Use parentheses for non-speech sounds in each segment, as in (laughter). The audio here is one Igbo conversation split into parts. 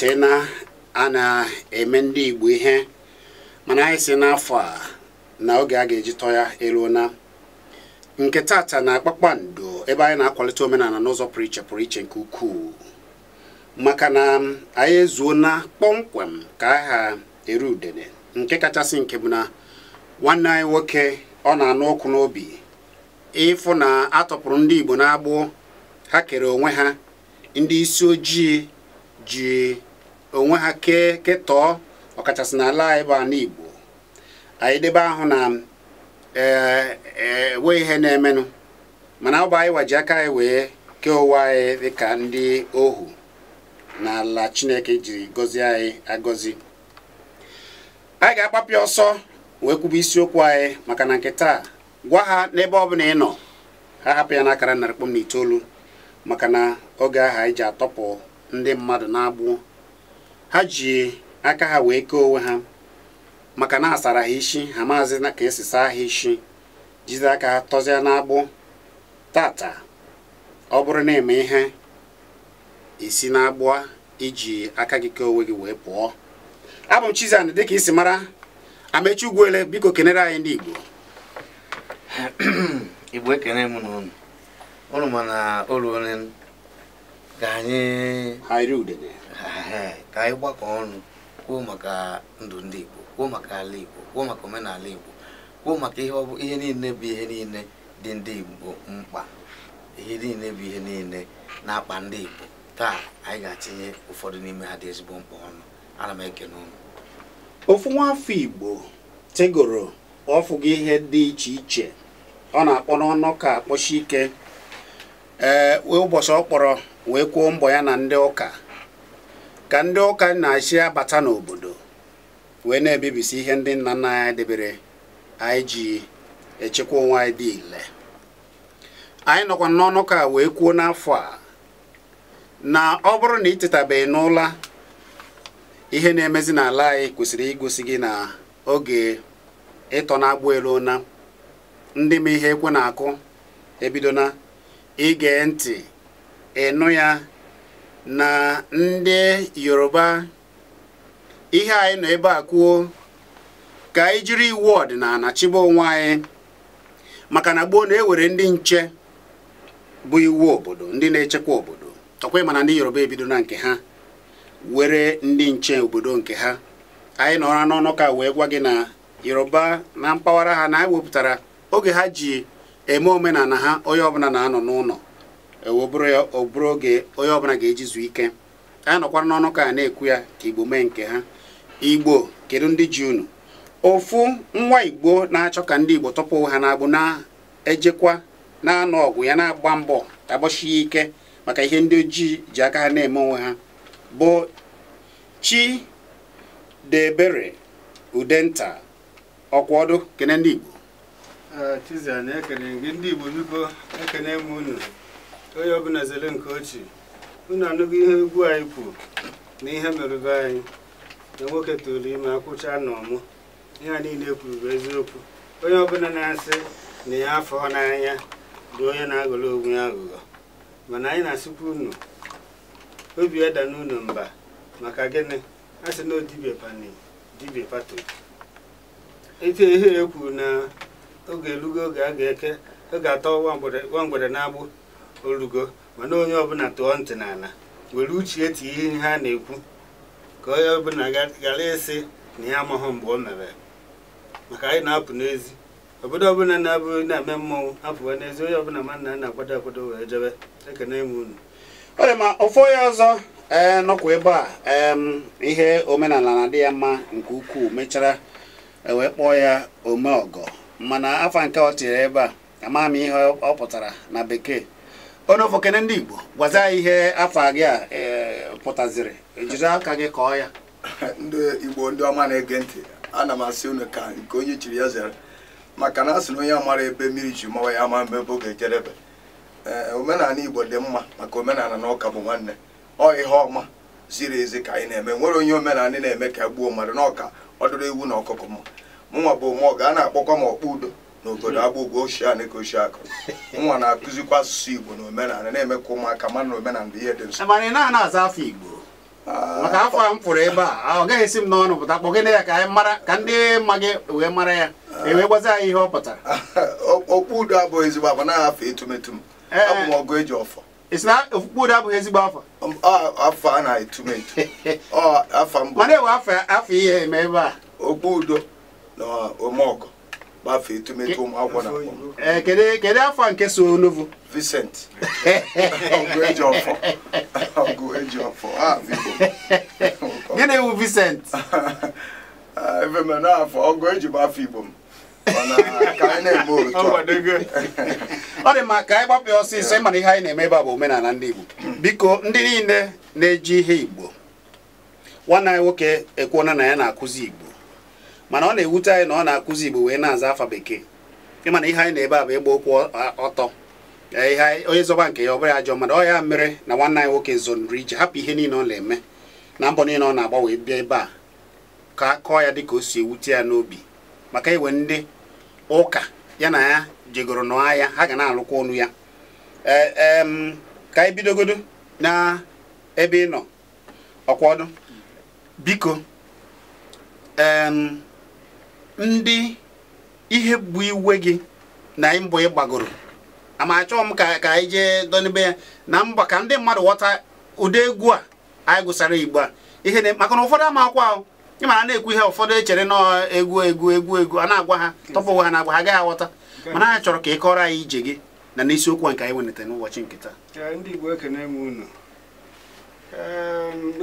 ụbọchị na a na-eme ndị Igbo ihe mana anyị si n'afọ a na oge a ga-eji tọọ ya eruo nke tata na akpakpando ebe anyị na-akwalite omenala n'ụzọ pụrụ iche pụrụ iche nke ukwuu maka na anyị ezuo na kpọmkwem ka aha eru udene nke kachasị nke bụ na nwanne anyị nwoke ọ na-anụ ọkụ n'obi ịfụ na atọpụrụ ndị Igbo n'agbụ ha kere onwe ha ndị isi ojii ji onwe ha kee ketọọ ọkachasị n'ala anyị bụ ala Igbo anyị debe ahụ na enwe e, ihe na-emenụ mana ọ bụ anyị waji aka anyị wee kee ụwa anyị dịka ndị ohu n'ala Chineke jiri gọzie anyị agọzi anyị ga akpapịa ọsọ wee kwuba isiokwu anyị maka na nke taa gwa ha n'ebe ọ bụla ị nọ ha hapụ ya n'akara narị kpọm na itoolu maka na oge ahụ anyị ji atọpụ ndị mmadụ na-agbụ ha ji aka ha wee kee onwe ha maka na asara ha isi ha maazị na ka esi saa ha isi jizi aka ha tọzie n'agbụ tata ọ bụrụ na eme ihe isi n'agbụ iji aka gị kee onwe gị wee pụọ abụ m chizan ka dịka isi mara Amechi Ugwuele biko kenere anyị ndị Igbo (clears throat) Igbo ekene m na unu ma na olu onye ka anyị ha ka anyị gbakọ ọnụ kwuo maka ndụ ndị Igbo kwuo maka ala Igbo kwuo maka omenala Igbo kwuo maka ihe niile bụ ihe niile dị ndị Igbo mkpa ihe niile bụ ihe niile na-akpa ndị Igbo taa anyị ga-atinye ụfọdụ n'ime ha dị ezigbo mkpa ọnụ ana m ekene ụnụ ofu nwafọ Igbo tegoro ọfụgị ihe dị iche iche ọ na-akpọ n'ọnụ ka akpọchi ike ee ụbọchị ọ kpọrọ wee kwuo mbọ ya na ndị ụka ka ndị ụka na-achị abata n'obodo wee na-ebibisi ihe ndị nna nna anyị debere anyị ji echekwa onwe anyị dị ile anyị nọkwa n'ọnụ ka wee kwuo n'afọ a na ọ bụrụ na ị tetabeghị n'ụla ihe na-emezi n'ala anyị kwesịrị igosi gị na oge ịtọ na-agbụ elu na ndị ma ihe ekwe na-akụ ebidona ige ntị ịnụ ya na ndị yoruba ihe anyị nọ ebe a kwuo ka anyị jiri iwu ọdịnala chibe onwe anyị maka na gboo na-ewere ndị nche bụ iwu obodo ndị na-echekwa obodo ọkwa mana ndị yoruba ebido na nke ha were ndị nche obodo nke ha anyị nọra n'ọnụ ka wee gwa gị na yoruba na mpaghara ha na anyị wepụtara oge ha ji eme omenala ha onye ọbụla na-anọ n'ụlọ ọ e, bụrụ oge onye ọbụla ga-eji zuo ike a nọkwara n'ọnụ ka a na-ekwu ya ka igbo mee nke ha igbo kedu ndị ji unu ofu nwa igbo na-achọ ka ndị igbo tọpụ ha na-agbụ na-ejekwa na-anọ ọgụ ya na-agba mbọ agbasie ike maka ihe ndị ojii ji aka ha na-eme onwe ha bụ Chidebere Udenta Ọkwaọdụ kene ndị igbo igbo onye ọbụla zere nke ochie unu anụgo ihe egwu anyị kwuru na ihe mere anyị na nwoke tụrụ ime akwụcha na ọmụ ihe a niile kwuru bụ eziokwu onye ọbụla na-asị na ya afọ n'anya bụ onye na agụrụ onwe ya aghụghọ mana anyị na-asịkwa unu obi ada n'unu mba maka gịnị a sị na odibia pani pato ite ihe ekwu na oge elugo oge a ga-eke oge atọ nwa mgbere na-agbụ olugo mana onye ọbụla tụọ ntị n'ala were uche tie ihe ha na-ekwu ka onye ọbụla gara ịsị na ya amaghị mgbe o mere maka anyị na-apụ n'ezi obodo ọbụla na-abụghị na-eme mmọnwụ apụwa n'ezi onye ọbụla mana na na-akwado akwado wee jebe ekene m unu ọrịa ma ofu onye ọzọ ee eh, nọkwa ebe a ihe omenala na-adị ya mma nke ukwuu mechara e wee kpọọ ya ome ọgọ mana afa nke ọ tinyere ebe a amaghị m ihe ọ pụtara na bekee onofokene ndị Igbo gwaza ihe afọ gị a e, pụtaziri ejiri aka gị kọọ ya (laughs) ndị Igbo ndị ọma na-ege ntị na m asị unu ka nke onye chiri ya zere maka na a sị na onye mara ebe mmiri ji mawa ya ama mgbe bụ ga-ejerebe e, omenala Igbo dị mma maka omenala na ụka bụ nwanne ọ ihe ọma ziri ezi ka anyị na-eme nwere onye omenala na-eme ka gbuo mmadụ n'ọka ọ ewu na ọkụkọ mma mụnwa bụ ụmụ ga a na-akpọkwa m ọkpụ udo n'obodo agbụgwọ ochie a neke ochie akụ nwa na-akụzikwa asụsụ Igbo na omenala na-eme ka ụmụaka mana na omenala ihe dị nso. mana ị na-ana aza afọ Igbo ah, maka afọ a m pụrụ ebe a ah, ọ gaghị esi m n'ọnụ pụta kpọgide ya ka anyị mara ka ndị ma gị wee mara ya ah. ewee gwazi anyị ihe ọ pụtara okpu udo abụghị ezigbo afọ naghị afọ etumetum abụ eh, eh. ọgụ eji ọfọ isi na udo abụghị ezigbo afọ um, afọ a na-etume etu (laughs) afọ mbụ mana ewe afọ ihe eme ebe a okpu udo na omeọgụ gbafee etumetu ụmụ akwụkwọ na kedu afọ nke so olovu Vincent (laughs) ah, (laughs) gịnị wụ Vincent afọ ọgụ eji bụ Igbo m ọ dị mma ka anyị gbapụ ọsịsọ ịmana ihe anyị na-eme ebe a bụ omenala ndị Igbo biko ndị niile na-eji ihe Igbo nwanne anyị nwoke ekwuona na ya na-akụzi Igbo mana ọ na-ewute anyị na ọ na-akụzi igbo wee na-aza afa bekee na ihe anyị na-ebe a bụ ịgba okwu ọtọ ihe onye zọba nke ya ọ bụrụ ajọ mmadụ ọ ya mere na nwanne anyị nwoke zonri ije hapụ ihe niile ọ na-eme na mbọ niile ọ na-agbanwe bịa ebe a ka kọọ ya dịka o si ewute ya n'obi maka iwe ndị ụka ya na ya jegoro nọọ ya ha ga na-alụkwa ọnụ ya e, ka anyị bidogodo na ebe ị nọ ọkwa ọdụ biko ndị ihe bụ iwe gị na mbọ ịgbagoro ama achọghị m ka ka anyị jee donibe ya na mba ka ndị mmadụ ghọta ụdị egwu a anyị gụsara igbo a ihe maka na ụfọdụ ama akwa ahụ ịmara na-ekwu ihe ụfọdụ echere na egwu egwu egwu egwu a na-agwa ha tọpụ ha na-agwa ha agaghị aghọta mana anyị chọrọ ka ị kọrọ anyị ije gị na n'isiokwu a nke anyị wenata n'ụbọchị nke taa ndị igbo unu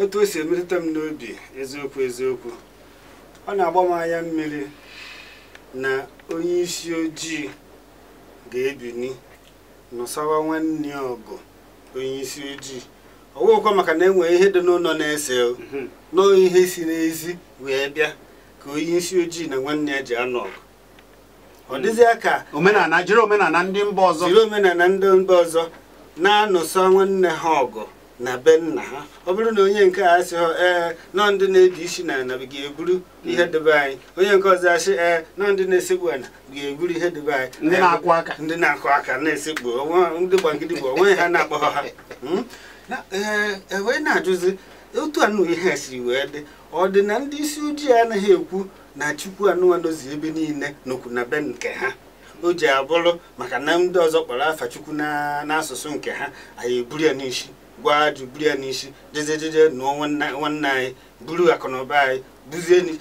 otu o si emetụta m n'obi eziokwu eziokwu ọ na-agba m anya mmiri na onye isi ojii ga-ebini nọsawa nwanne ọgụ onye isi ojii ọwụkwa maka na enwere ihe dị n'ụlọ na-ese mhm. nọọ ihe si n'ezi wee bịa ka onye isi ojii na nwanne ya ji anọ ọgụ ọ mhm. dịzịa ka omenala jiri omenala ndị mba ọzọ jiri omenala ndị mba ọzọ na-anụsa nwanne ha ọgụ na be nna ha ọ bụrụ na onye nke a sị ha ee nọ ndị na eji isi na ana ga-eburu ihe mm. debe anyị onye nke ọzọ asị ee nọ ndị na-esekpu ana ga-eburu ihe debe anyị ndị na-akụ aka ndị na-akụ aka na-esekpu ndị bụ onwe ha na-akpọ ha ee hmm? e, wee na-ajụzi otu anụ ihe siri wee dị ọ dị na ndị isi ojii anaghị ekwu na chukwu anụmanụzi ebe niile n'okwu na be nke ha o ji abụrụ maka na ndị ọzọ kpọrọ afa chukwu n'asụsụ nke ha anyị eburu ya n'isi gwa jubiri ya n'isi jejejeje nụọ nwanne anyị buru akụnụba anyị buzie ndị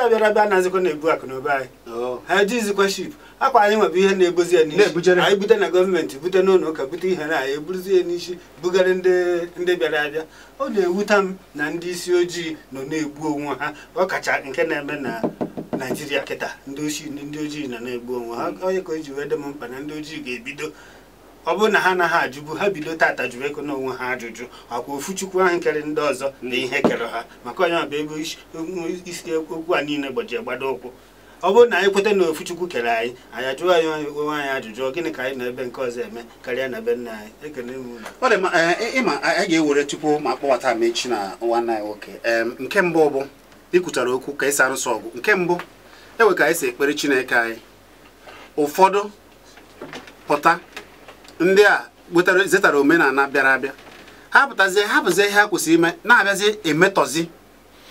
abịara abịa na-azịkwa na-ebu akụnụba anyị ha jizikwa ship akwa anyị nwebụ ihe na-ebozi ya n'isi anyị bute na gọọmenti bute n'ụlọ ụka bute ihe na anyị eburuzie ya n'isi bugara ndị bịara abịa ọ na-ewuta m na ndị isi ojii nọ na-egbu onwe ha ọkacha nke na-eme na naijiria kịta ndị ojii nọ na-egbu onwe ha onye ka o ji wee dị m mkpa na ndị ojii ga-ebido ọ bụrụ na ha anaghị ajụbu ha bido tata jụrụ ego n'onwe ha ajụjụ ọkwa ofuchukwu ahụ kere ndị ọzọ na ihe kere ha maka onye bụ ebe isi okwu a niile gbajie gbado ụkwụ ọ bụrụ na anyị kweta na ofuchukwu kere anyị anyị ajụọ anyị onwe anyị ajụjụ gịnị ka anyị na ebe nke ọzọ eme karịa na ebe nna anyị ekele e, e, ịma anyị ga-ewere tupu ma kpọbata m echi na nwanne anyị nwoke nke mbụ bụ ikwutara okwu ka ịsa arụsị ọgụ nke mbụ enwe ka anyị si ekpere chineke anyị ụfọdụ pụta ndị a zetara omenala bịara abịa ha pụtazie ihe ha kwesịrị ime na-abịazi emetọzi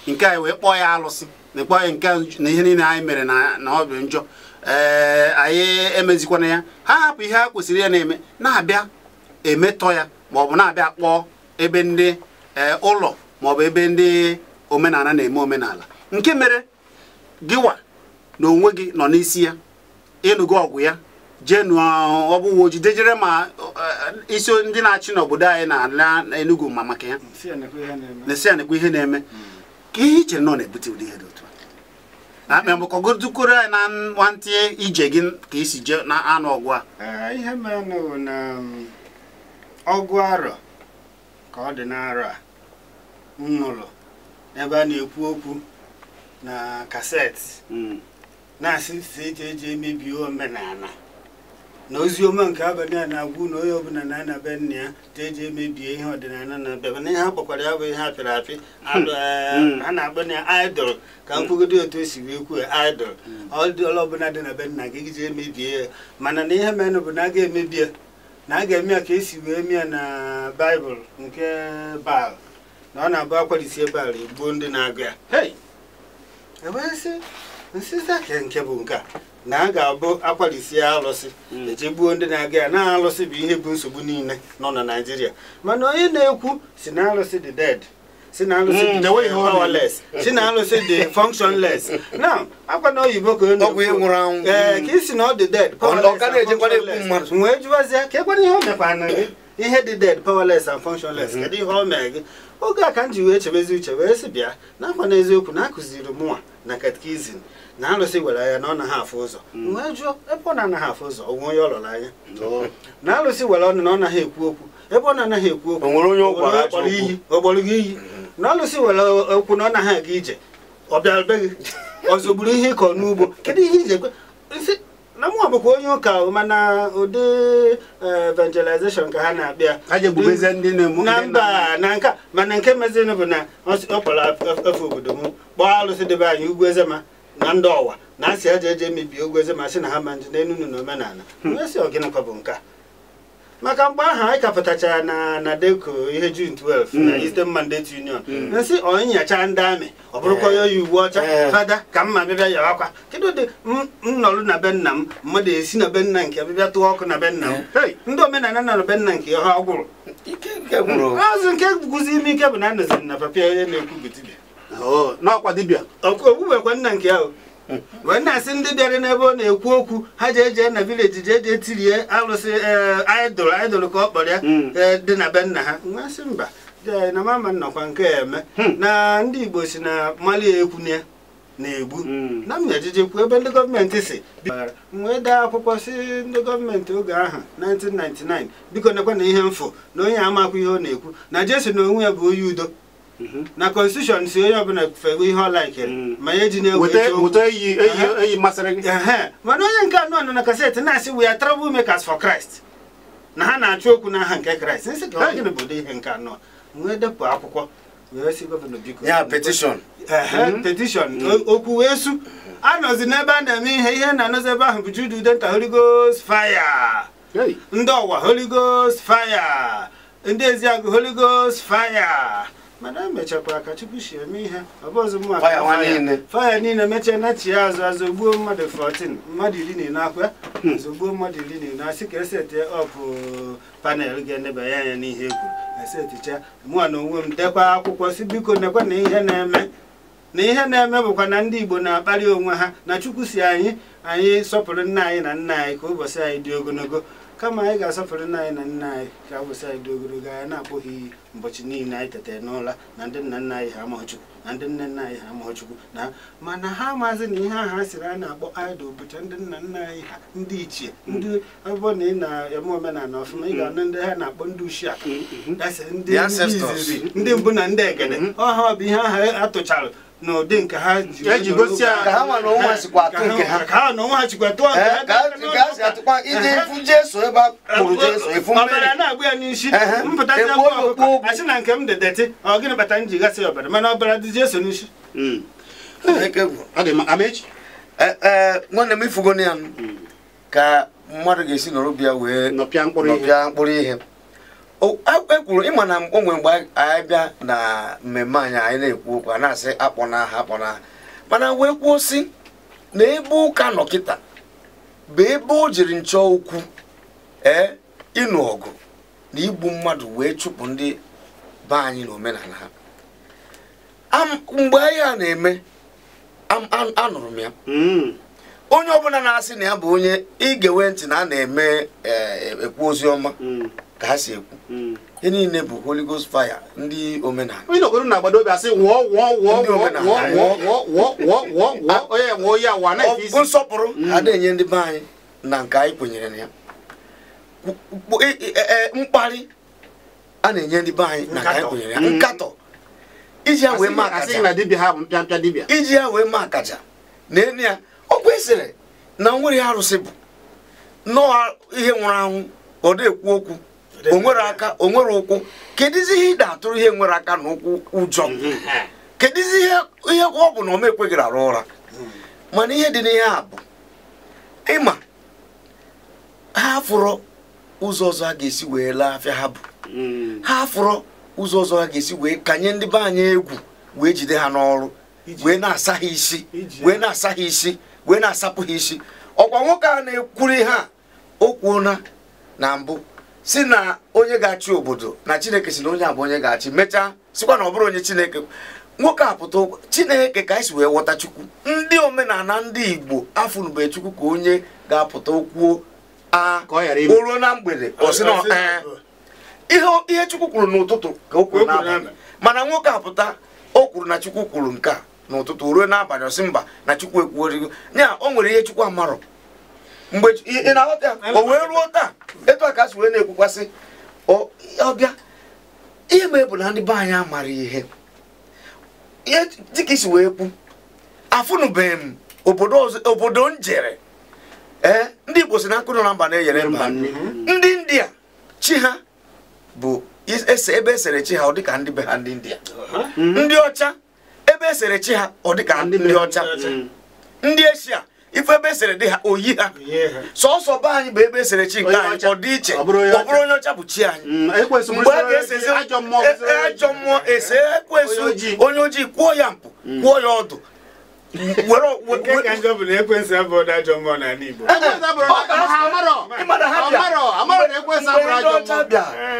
nke anyị wee kpọọ ya alụsị na kpọọ ya nke na ihe niile anyị mere na ọ bụ njọ ee anyị emezikwana ya ha hapụ ihe ha kwesịrị ya na-eme na-abịa emetọ ya ma ọ bụ na-abịa kpọọ ebe ndị ụlọ ma ọ bụ ebe ndị omenala na-eme omenala nke mere gịwa na onwe gị nọ n'isi ya ịnụgo ọgwụ ya jenu ahụ ọ dejere ma eh, isi ndị na-achị n'obodo anyị na-ala Enugu ma maka ya na-esi anekwa ihe na-eme ka ihe iche nọ na-ebute ụdị ihe dị otu a akpa maka ọgụdụkoro anyị na nwantị ije gị ka isi jee na anụ ọgwụ a eh, ihe mere na um, ọgụ arọ ka ọ dị n'arọ a nnụrụ ebe a na-ekwu okwu na kaseti hmm. na-asị eji emebi omenala na ozi nke abalị a na agwụ na onye ọbụla na be nna ya ta eji emebie ihe ọdịnala na-abịa mana ihe ha kpọkwara ya bụ ihe apịrị apị (laughs) eh, ha na-akpọ na idol ka nkwugodo otu esi wee kwuo idol hmm. ọdịọla ọbụla dị na be nna gị gịji emebie ya mana na ihe menụ bụ na a ga-emebie na a ga-eme ya ka esi wee mịa na baịbụl nke baal na ọ na-abụ akwarisie baal egbuo ndị na-agụ ya e nsizi ahịa nke bụ nke a na a ga-abụ akwalisi alụsị hmm. ejegbuo ndị na-aga ya na alụsị bụ ihe bụ nsogbu niile nọ na naijiria mana onye na-ekwu si na alụsị dị dead si na alụsị dị powerless hmm. si na alụsị dị functionless (laughs) na akwa na oyibo ka ọ ee eh, ka isi na ọ dị dead wee jụwazie ka ekwana ihe o mekwara gị ihe dị dead powerless and functionless hmm. kedu ihe ọ mere gị oge a ka m ji wee chebezi uche wee sị bịa na akwa na eziokwu na akụziri mụnwa na katkizin na alụsị were anya na ọ naghị afụ ụzọ mm. wee jụọ ebe ọ na-anaghị afụ ụzọ onwe onye ọ lụrụ anya na alụsị were ọnụ na ọ naghị ekwu okwu ebe ọ na-anaghị ekwu okwu onwere onye ọgbọrọ iyi ọgbọrọ gị iyi na alụsị were okwu na ọ naghị aga ije ọ bịarube gị ọzọ ọzọgburu ihe ịkọ n'ugbo kedu ihe iji ekwe na mụnwa bụkwa onye ụka mana ụdị e, evangelization ka ha na-abịa na mba na nka mana nke mezinụ bụ na ọ kpọrọ e, efe obodo m kpọọ alụsị debe anyị ugwu ezema na ndị ọwa na asị aja eje mebie ogweze ma sị na ha ma nji n'elu na omenala hmm. esi ọgịnịkwa bụ nke maka mgbe ahụ anyị kapụtachara na na deko ihe jun 12 hmm. na Eastern Mandate Union hmm. nsị ọnyacha ndị amị ọ bụrụkwa oyi uwe ọcha eh. Eh. fada ka mma bịbịa yawa akwa kedụ ụdị nnọrụ na be nna m mmadụ esi na be nna nke bịbịa tụọ ọkụ na be nna m eh. ndị omenala nọ na be nna nke ha ọ gwụrụ azụ nke guzi ime ike bụ na a anọziri na papịa onye na-ekwu bụ Oh, n'ọkwa dibịa nna nke ahụ wee na-asị ndị bịara n'ebe ọ na-ekwu okwu ha ji eje na vileji ji eje tirie alụsị eh, idol idol ka ọ kpọrọ ya hmm. eh, dị na be nna ha masị mba na mama nnọkwa nke eme hmm. na ndị igbo si na mali ekwuna ya na-egbu hmm. na m ejiji ebe ndị gọọmenti si wee daa akwụkwọ si ndị gọọmenti oge ahụ 1999 biko nekwa na ihe mfụ na onye amakwa ihe ọ na-ekwu na jesu na onwe ya bụ onye udo na constitution si onye ọbụla fego ihe ọ ma ya eji na-egwu mana onye nke anọ nọ na kaseti na-asị we are trouble makers for Christ na ha na-achụ okwu ha nke Christ si ka gịnị bụ ihe nke anụ wee depụ akwụkwọ wee gọvanọ ya mm-hmm. mm. okwu wee su anọzi n'ebe a na-eme ihe ihe na-anọzi ebe ahụ bụ Jude Udenta ndị ọwa ndị eziagụ mana emechakwa ka chukwu si eme ihe faya niile mechaa nachie azụ azụ gbuo mmadụ 14 mmadụ iri na ine akwa hmm. zogbuo mmadụ iri na ine asị ka eseti ọpụ uh, panel ga-enebanye anya n'ihe egwu eseticha mụa na onwe m dekwa akwụkwọ si biko nekwa na ihe na-eme na ihe na-eme bụkwa na ndị igbo na-akpali onwe ha na chukwu si anyị anyị sọpụrụ nna anyị na nna anyị ka ụbọchị anyị dị ogologo kama anyị ga-asọpụrụ nna anyị na nna anyị ka abụsị anyị dị ogologo anya na-abụghị iyi ụbọchị niile anyị tetere n'ụla na ndị nna nna anyị ha amaghị Chukwu na ndị nne nna anyị ha amaghị Chukwu na mana ha amaghịzị na ihe aha siri a na-akpọ idol bụcha ndị nna nna anyị ha ndị ichie ndị ọbụbọ na ị na-eme omenala ọfụma ị ga-anụ ndị ha na-akpọ ndị ushia mm-hmm. ndị mbụ na ndị egede mm-hmm. ọha bụ ihe aha atụcharụ n'ụdị nke ha ji gosi ka ha nwa ha nke eh, ha ka ha ha nke ha ka ha si atụkwa eh, ebe a kwuru efu mmiri ọbara na-agba ya n'isi eh, mpụta akwụkwọ asị na nke m dị ọ gịnị bata m ọbara mana ọbara dị jesu n'isi hmm. nwanne m ifugo ya hmm. ka mmadụ ga-esi nọrọ bịa wee nọpịa mkpụrụ ihe ekwuru e ịma na onwe mgbe anyị bịa na mmemme anyị anyị na-ekwu okwu a na-asị akpọna akpọ akpọna mana wee kwuo si na ebe ụka nọ kịta bụ ebe o jiri nchọ ukwu ee ịnụ ọgụ na igbu mmadụ wee chụpụ ndị be anyị na omenala ha mgbe anyị a na-eme anụrụ m ya mm. onye ọbụla na-asị na ya bụ onye ige ewe ntị na a na-eme e, ekwu ozi ọma mm. ka ha si ekwu hmm. ihe niile bụ Holy Ghost fire ndị omenala onye na-agbado obi asị ya ah, hmm. enye ndị be anyị na nke anyị kwenyere na ya e, e, e, mkparị a na-enye ndị be anyị na nke anyị kwenyere ya hmm. nkatọ iji ya wee maa akaja ya na enu ya ọ kwesịrị na nwere arụsị bụ nọọ ihe nwụrụ anwụ ọ na-ekwu okwu onwere aka onwere ụkwụ kedizi ihe ị na-atụrụ ihe nwere aka na ụkwụ ụjọ mhm. kedizi ihe ọ bụ na ọma ekweghị arụ ụra mhm. mana ihe dị n'ihe a bụ ịma ha fụrọ ụzọ ọzọ ha ga-esi wee laa afịa ha bụ mhm. ha fụrọ ụzọ ọzọ ha ga-esi wee kanye ndị be anyị egwu wee jide ha n'ọrụ wee na-asa ha isi wee na-asa ha isi wee na-asapụ ha isi ọkwa nwoke a na-ekwuri ha o kwuona na mbụ si na onye ga-achị obodo na chineke si na onye a bụ onye ga-achị mechaa sikwa na ọ bụrụ onye chineke nwoke apụta chineke ka anyị si wee ghọta chukwu ndị omenala ndị igbo afụnube chukwu ka onye ga-apụta okwuo a ruo na mgbede ihe chukwu kwuru n'ụtụtụ ka o kwuru mana nwoke apụta o kwuru na chukwu kwuru nke a n'ụtụtụ ruo n'abalị ọsị mba na chukwu ekwuorigo nya o nwere ihe chukwu amarọ mgbe ị na ọbịa o wee ruo taa etu a ka asị wee na-ekwukwasị ọbịa ihe mee bụ na ndị be anyị amara ihe dịka isi wee kwu afụnụbeghị m obodo njere ee ndị Igbo si na nkụ nọ na mba na-enyere mba ndị India chi ha bụ ebe esere chi ha ọ dịka ndị be ha ndị India uh-huh. ndị ọcha ebe esere chi ha ọ dịka ndị ọcha ndị Eshia ife ebe esere dị ha oyi ha sọsọ be anyị bụ ebe esere chi nke anyị ọ dị iche ọ bụrụ onye ọcha bụ chi anyị mm, e mgbe a ga ajọ mmụọ ese onye ojii kwụọ ya mpụ mm. kwụọ ya ọdụ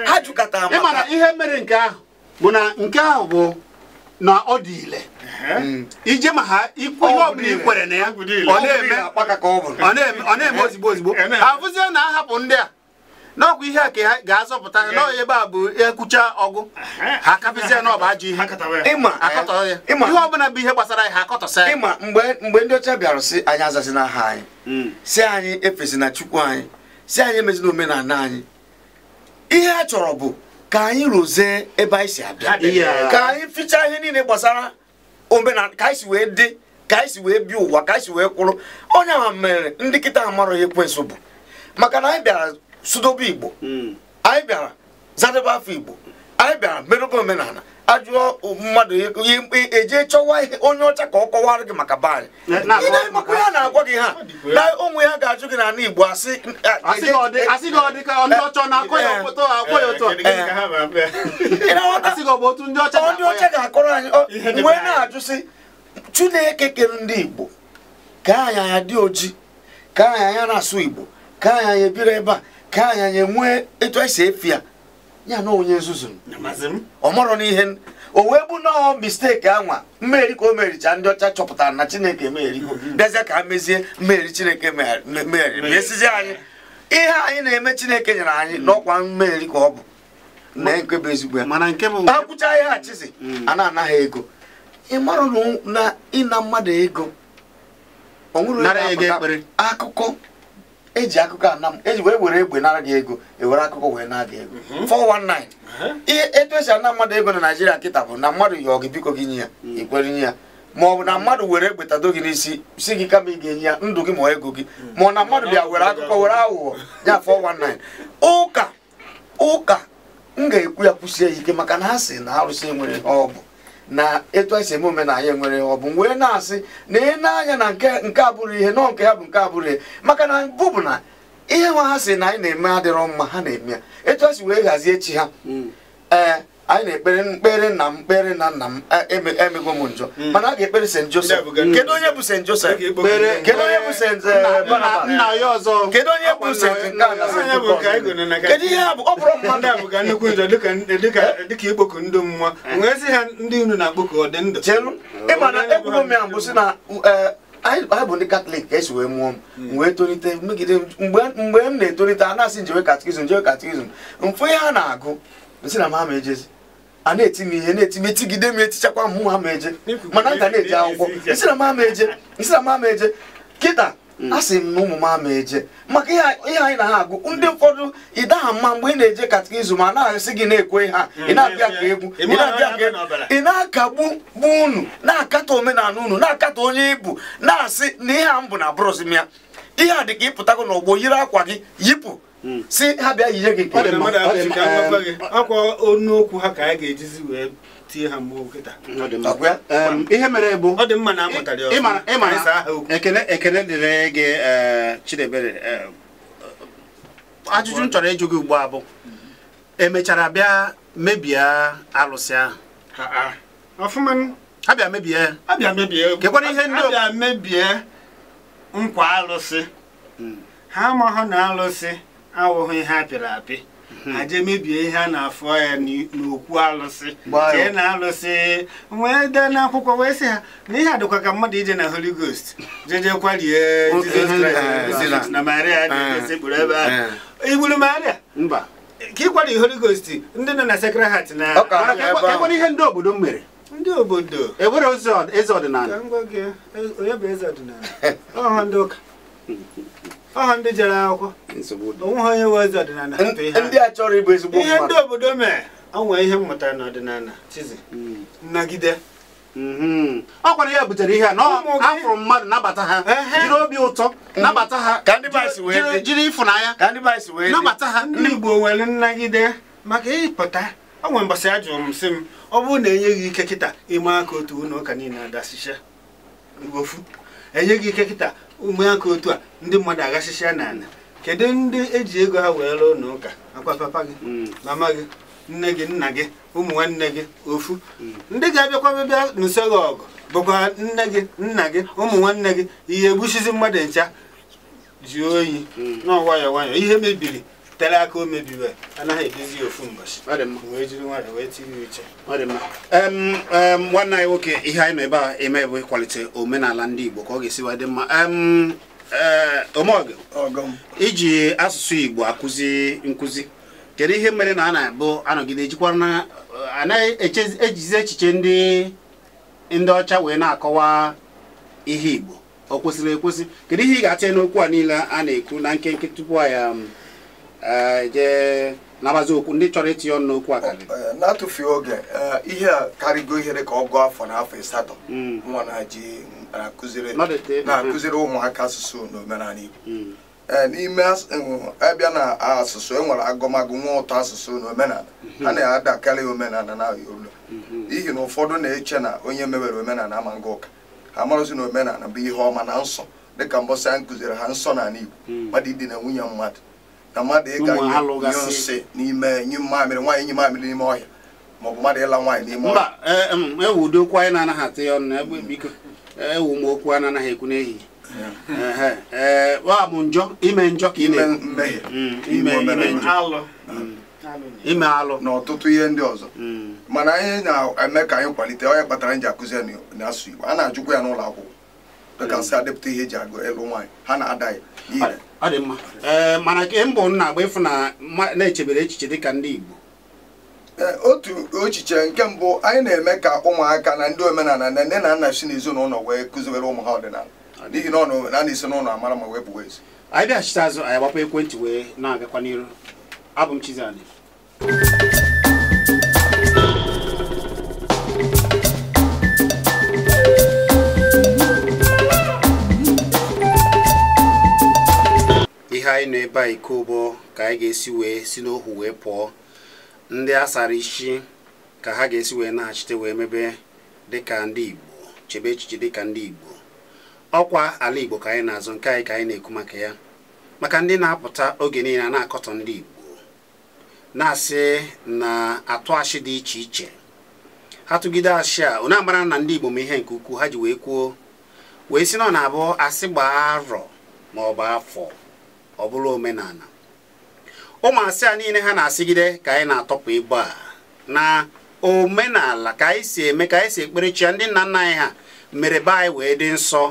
ha jụkọtara ihe mere nke ahụ bụ na nke ahụ bụ na ọ dị ile ije ma ha ikwu ihe ọbụla ikwere na ya ọ na-eme ozigbo ozigbo abụzie na ahapụ ndị a n'ọkwa ihe a ka ha ga-azọpụta n'ọya ebe a bụ ekwucha ọgụ ha kapịzie na ọ bụ ajọ ihe ihe ọbụla bụ ihe gbasara ha akọtọsa ya ịma mgbe ndị ọcha bịara sị anyị azazi n'aha anyị hmm. si anyị efesi na chukwu anyị si anyị emezi na omenala anyị ihe ha chọrọ bụ ka anyị rụzie ebe anyị si abịa ka anyị ficha ihe niile gbasara omenala ka anyị si wee dị ka anyị si wee bi ụwa ka anyị si wee kwụrụ onye ahụ mere ndị kịta ha mara ekwensu bụ maka na anyị bịara sudobe igbo hmm. anyị bịara zadebe afọ igbo anyị bịara merụba omenala ajụọ mmadụ eje e chọwa ihe onye ọcha ka ọ kọwara gị maka baanyị ịna-emakwa ya na-agwa gị ha na ụmụ ya ga-ajụ gị n'ala Igbo asị eh, eh, ndị ọcha ga-akọrọ anyị wee na-ajụ sị Chineke kere ndị Igbo ka anyị anya dị oji ka anyị ya na-asụ Igbo ka anya anya ebiri ebe a ka anyị anya nwee etu anyị e efi ya ya na onye nzuzu ọ mọrọ n'ihe o wee bụ nọọ mistake anwa mmeri ka o mericha ndị ọcha chọpụtara na chineke emeriko mm-hmm. bịazie ka a mezie mmeri chineke meri esizi anyị ihe anyị na-eme chineke nyere anyị mm. n'ọkwa mmeri ka ọ bụ na bụ ezigbo ya akwụcha ihe achịzi mm. a na-anaghị ego ị marụ na ịna mmadụ ego ọ nwere akụkọ eji akụkọ ana m eji wee were egbe nara gị ego ewere akụkọ wee na gị ego 419 mhm. ihe etu esi ana mmadụ ego na naijiria nkịta bụ na mmadụ yọọ gị biko gị nye ya ikwere mm. nye ya ma ọ bụ na mm. mmadụ were egbe tado gị n'isi si gị kama ị ga-enye ya ndụ gị ma ego gị mm. ma ọ na mmadụ bịa were akụkọ were aghụghọ ya 419 ụka ụka m ga-ekwu ya kwụsie ya ike maka na ha si na arụsị enwere ọ bụ na etu anyị si eme omenala nwere ọ bụ wee na-asị na ị na-anya na nke abụrụ ihe nọ nke ya bụ nke abụrụ ihe maka na mbụ bụ na ihe nwa ha si na anyị na-eme adịrọ mma ha na-eme ya etu anyị si wee hazie chi ha mm. eh, anyị na-ekpere mkpere na mkpere na nna m emego e, e e m njọ hmm. mana a ga-ekpere St. Joseph kedu onye bụ St. Joseph kedu onye bụ St. Eh, Barnabas kedu onye bụ St. kedu ihe ọ bụrụ mmadụ a bụga nnukwu njọ dịka ikpoku ndị mmụọ nwee eh. sị ha ndị unu na-akpọku ọ dị ndụ chelu ịmana ekwugo m ya mbụ si na eh, anyị bụ ndị katọlik ka esi wee mụọ m hmm. wee tolite megide mgbe m na-etolite a na-asị njewe katikizm njewe katikizm mfu ihe a na-agụ si na m ama ejezi a na etinye ihe na-eti etigide m etichakwa m mụ ama eje mana m na-eje akwụkwọ isi na m ama eje na m ama eje kịta hmm. asị m na ụmụ m ama eje maka ihe anyị na ha agụ ndị ụfọdụ ị daha mma mgbe ị na-eje izu ma na-asị gị na-ekwe ha ị hmm. na-abịa ka egwu ị na-abịa ka egwu ị na-akagbu bụ unu na-akatọ omenala unu na-akatọ onye ibu na-asị na ihe a m bụ na brọs m ya ihe a dị ka ịpụtago n'ọgbọ yiri akwa gị yipụ Hmm. si ha bịa yinye gị akwa onu okwu ha ka a ga-ejizi wee tie ha mgbe kịta ihe mere bụ ọ dị mma na amụtara ekele ekele dịrị gị e, Chidebere ajụjụ m chọrọ ịjụ gị ugbu a bụ emechara bịa mebie alụsị ahụ ha bịa mebie kekwara ihe ndị ha mebie nkwa alụsị hmm. ha amaghị na alụsị awụghị ihe a pịrị apị hmm. aje mebie ihe a na-afọ ya n'okwu alụsị jee na alụsị wee dee n'akwụkwọ wee sị ha na ihe adịkwa ka mmadụ ije na holy ghost jejekwa lie jizọs na maria dịsekpụrụ eh, eh, ebe ahụ igburu eh. maria mba ka ịkwari holy ghost ndị nọ na sekre heart na ihe ndị obodo mere ndị obodo ewere eze ọdịnala e, onye bụ eze ọdịnala (laughs) ọha ndị ụka (laughs) ọha ndị jere akwụkwọ onwe ha onye wee ezi ọdịnala ndị a chọrọ ịbụ ezigbo ihe ndị obodo mee o nwee ihe mmụta n'ọdịnala chizi hmm. nnagide hmm. ọ kwara ya butere ihe a na afụrụ mmadụ nabata ha jiri obi ụtọ hmm. nabata ha jiri ịfụnanya nabata ha ndị Igbo nwere nnagide maka ịpụta o nwere mbọsị a jụrụ m sị m ọ bụrụ na enye gị ike kịta ịma aka otu ụlọ ụka niile adasicha igbofu enyeghị ike kịta ụmụaka otu a ndị mmadụ aghasịsịa n'ala kedu ndị eji ego ha wee lụọ n'ụka akwa papa gị mm. mama gị nne gị nna gị ụmụ nwanne gị ofu mm. ndị ga-abịakwa bịa n'ụso gị ọgụ bụkwa nne gị nna gị ụmụ nwanne gị ihe egbusizi mmadụ ncha ji oyi mm. na nwayọọ nwayọọ ihe mebiri tere aka o mebiwe anaghị edozi ofu mbọchị wee jiri nwayọ wee tinye uche nwanne anyị nwoke ihe anyị nọ ebe a eme bụ ịkwalite omenala ndị Igbo ka ọ ga-esiwa esi dị mma e, omeọgụ iji asụsụ Igbo akụzi nkụzi kedu ihe mere na a na-abụ anọgide ejikwara na anaghị ejizi echiche ndị ndị ọcha wee na-akọwa ihe Igbo ọ kwesịrị ekwesị kedu ihe ị ga-atịnye n'okwu a niile a na-ekwu na nkenke tupu anyị Eh, je nabazi okwu ndị chọrọ itinye ọnụ n'okwu a eh, na-atụfughị oge eh, ihe a karịgo ihere ka ọ gụọ afọ na afọ ịsatọ hmm. nwa na-eji na-akụziri ụmụaka asụsụ na Igbo hmm. n'ime abịa na asụsụ e nwere agụmagụ nwa ụtọ asụsụ na a hmm. na-adakarị omenala na Yoruba n'ihi na ụfọdụ na-eche na onye mewere omenala ama nga ụka ha marụzi na omenala bụ ihe ọma na nsọ dịka mbọsị a nkụziri ha nsọ n'ala Igbo mmadụ idina nwunye mmadụ na mmadụ ịga nyụ nsị n'ime nyụ mamịrị nwaanyị nyụ mamịrị n'ime ọhịa maọbụ mmadụ ịla nwaanyị n'ime ọhịa mba ewu ụdị okwu anyị na-anaghị atụ ya ọnụ egbe biko ewu m okwu a na-anaghị ekwu n'ehihie e, bụ njọ ime njọ ka ị na-emehie mm, ime alụ mm. na ọtụtụ ihe ndị ọzọ mm. mana anyị na-eme ka anyị kwalite onye kpatara nji akụzi ya n'asụ Igbo a na-ajụkwa ya n'ụlọ akwụkwọ dịka nsị adepụta ihe eji agụ ịlụ nwaanyị ha na-ada ya ire ọ dị mma ee eh, mana ke mbụ nna agba ịfụ na na-echebere echiche dị ka ndị Igbo eh, otu echiche nke mbụ anyị na-eme ka ụmụaka na ndị omenala na nne na nna si n'ezinụlọ wee kụziwere ụmụ ha ọdịnala n'ihi na ọ na esi n'ụlọ amara ma wee wepụ wezi anyị bịachite azụ anyị agbapụ ekwentị wee na-agakwa n'iru abụ m Chizzy ihe anyị nọ ebe a iko ụgbọ ka anyị ga-esi wee si n'ohu wee pụọ ndị a sara isi ka ha ga-esi wee naghachite wee mebe dịka ndị Igbo chebe echiche dịka ndị Igbo ọkwa ala Igbo ka anyị na-azụ nke anyị ka anyị na-ekwu maka ya maka ndị na-apụta oge niile a na-akọtọ ndị Igbo na-asị na atụ achị dị iche iche ha tụgide achị a onye na ndị Igbo ma ihe nke ukwuu ha ji wee kwuo wee si na ọ na-abụ asị gbaa arọ ma ọ bụ afọ ọ bụrụ omenala ụmụ a niile ha na-asịgide ka anyị na-atọpụ ibu a na omenala ka anyị si eme ka anyị si ekpere chi ndị nna nna anyị ha mere be anyị wee dị nsọ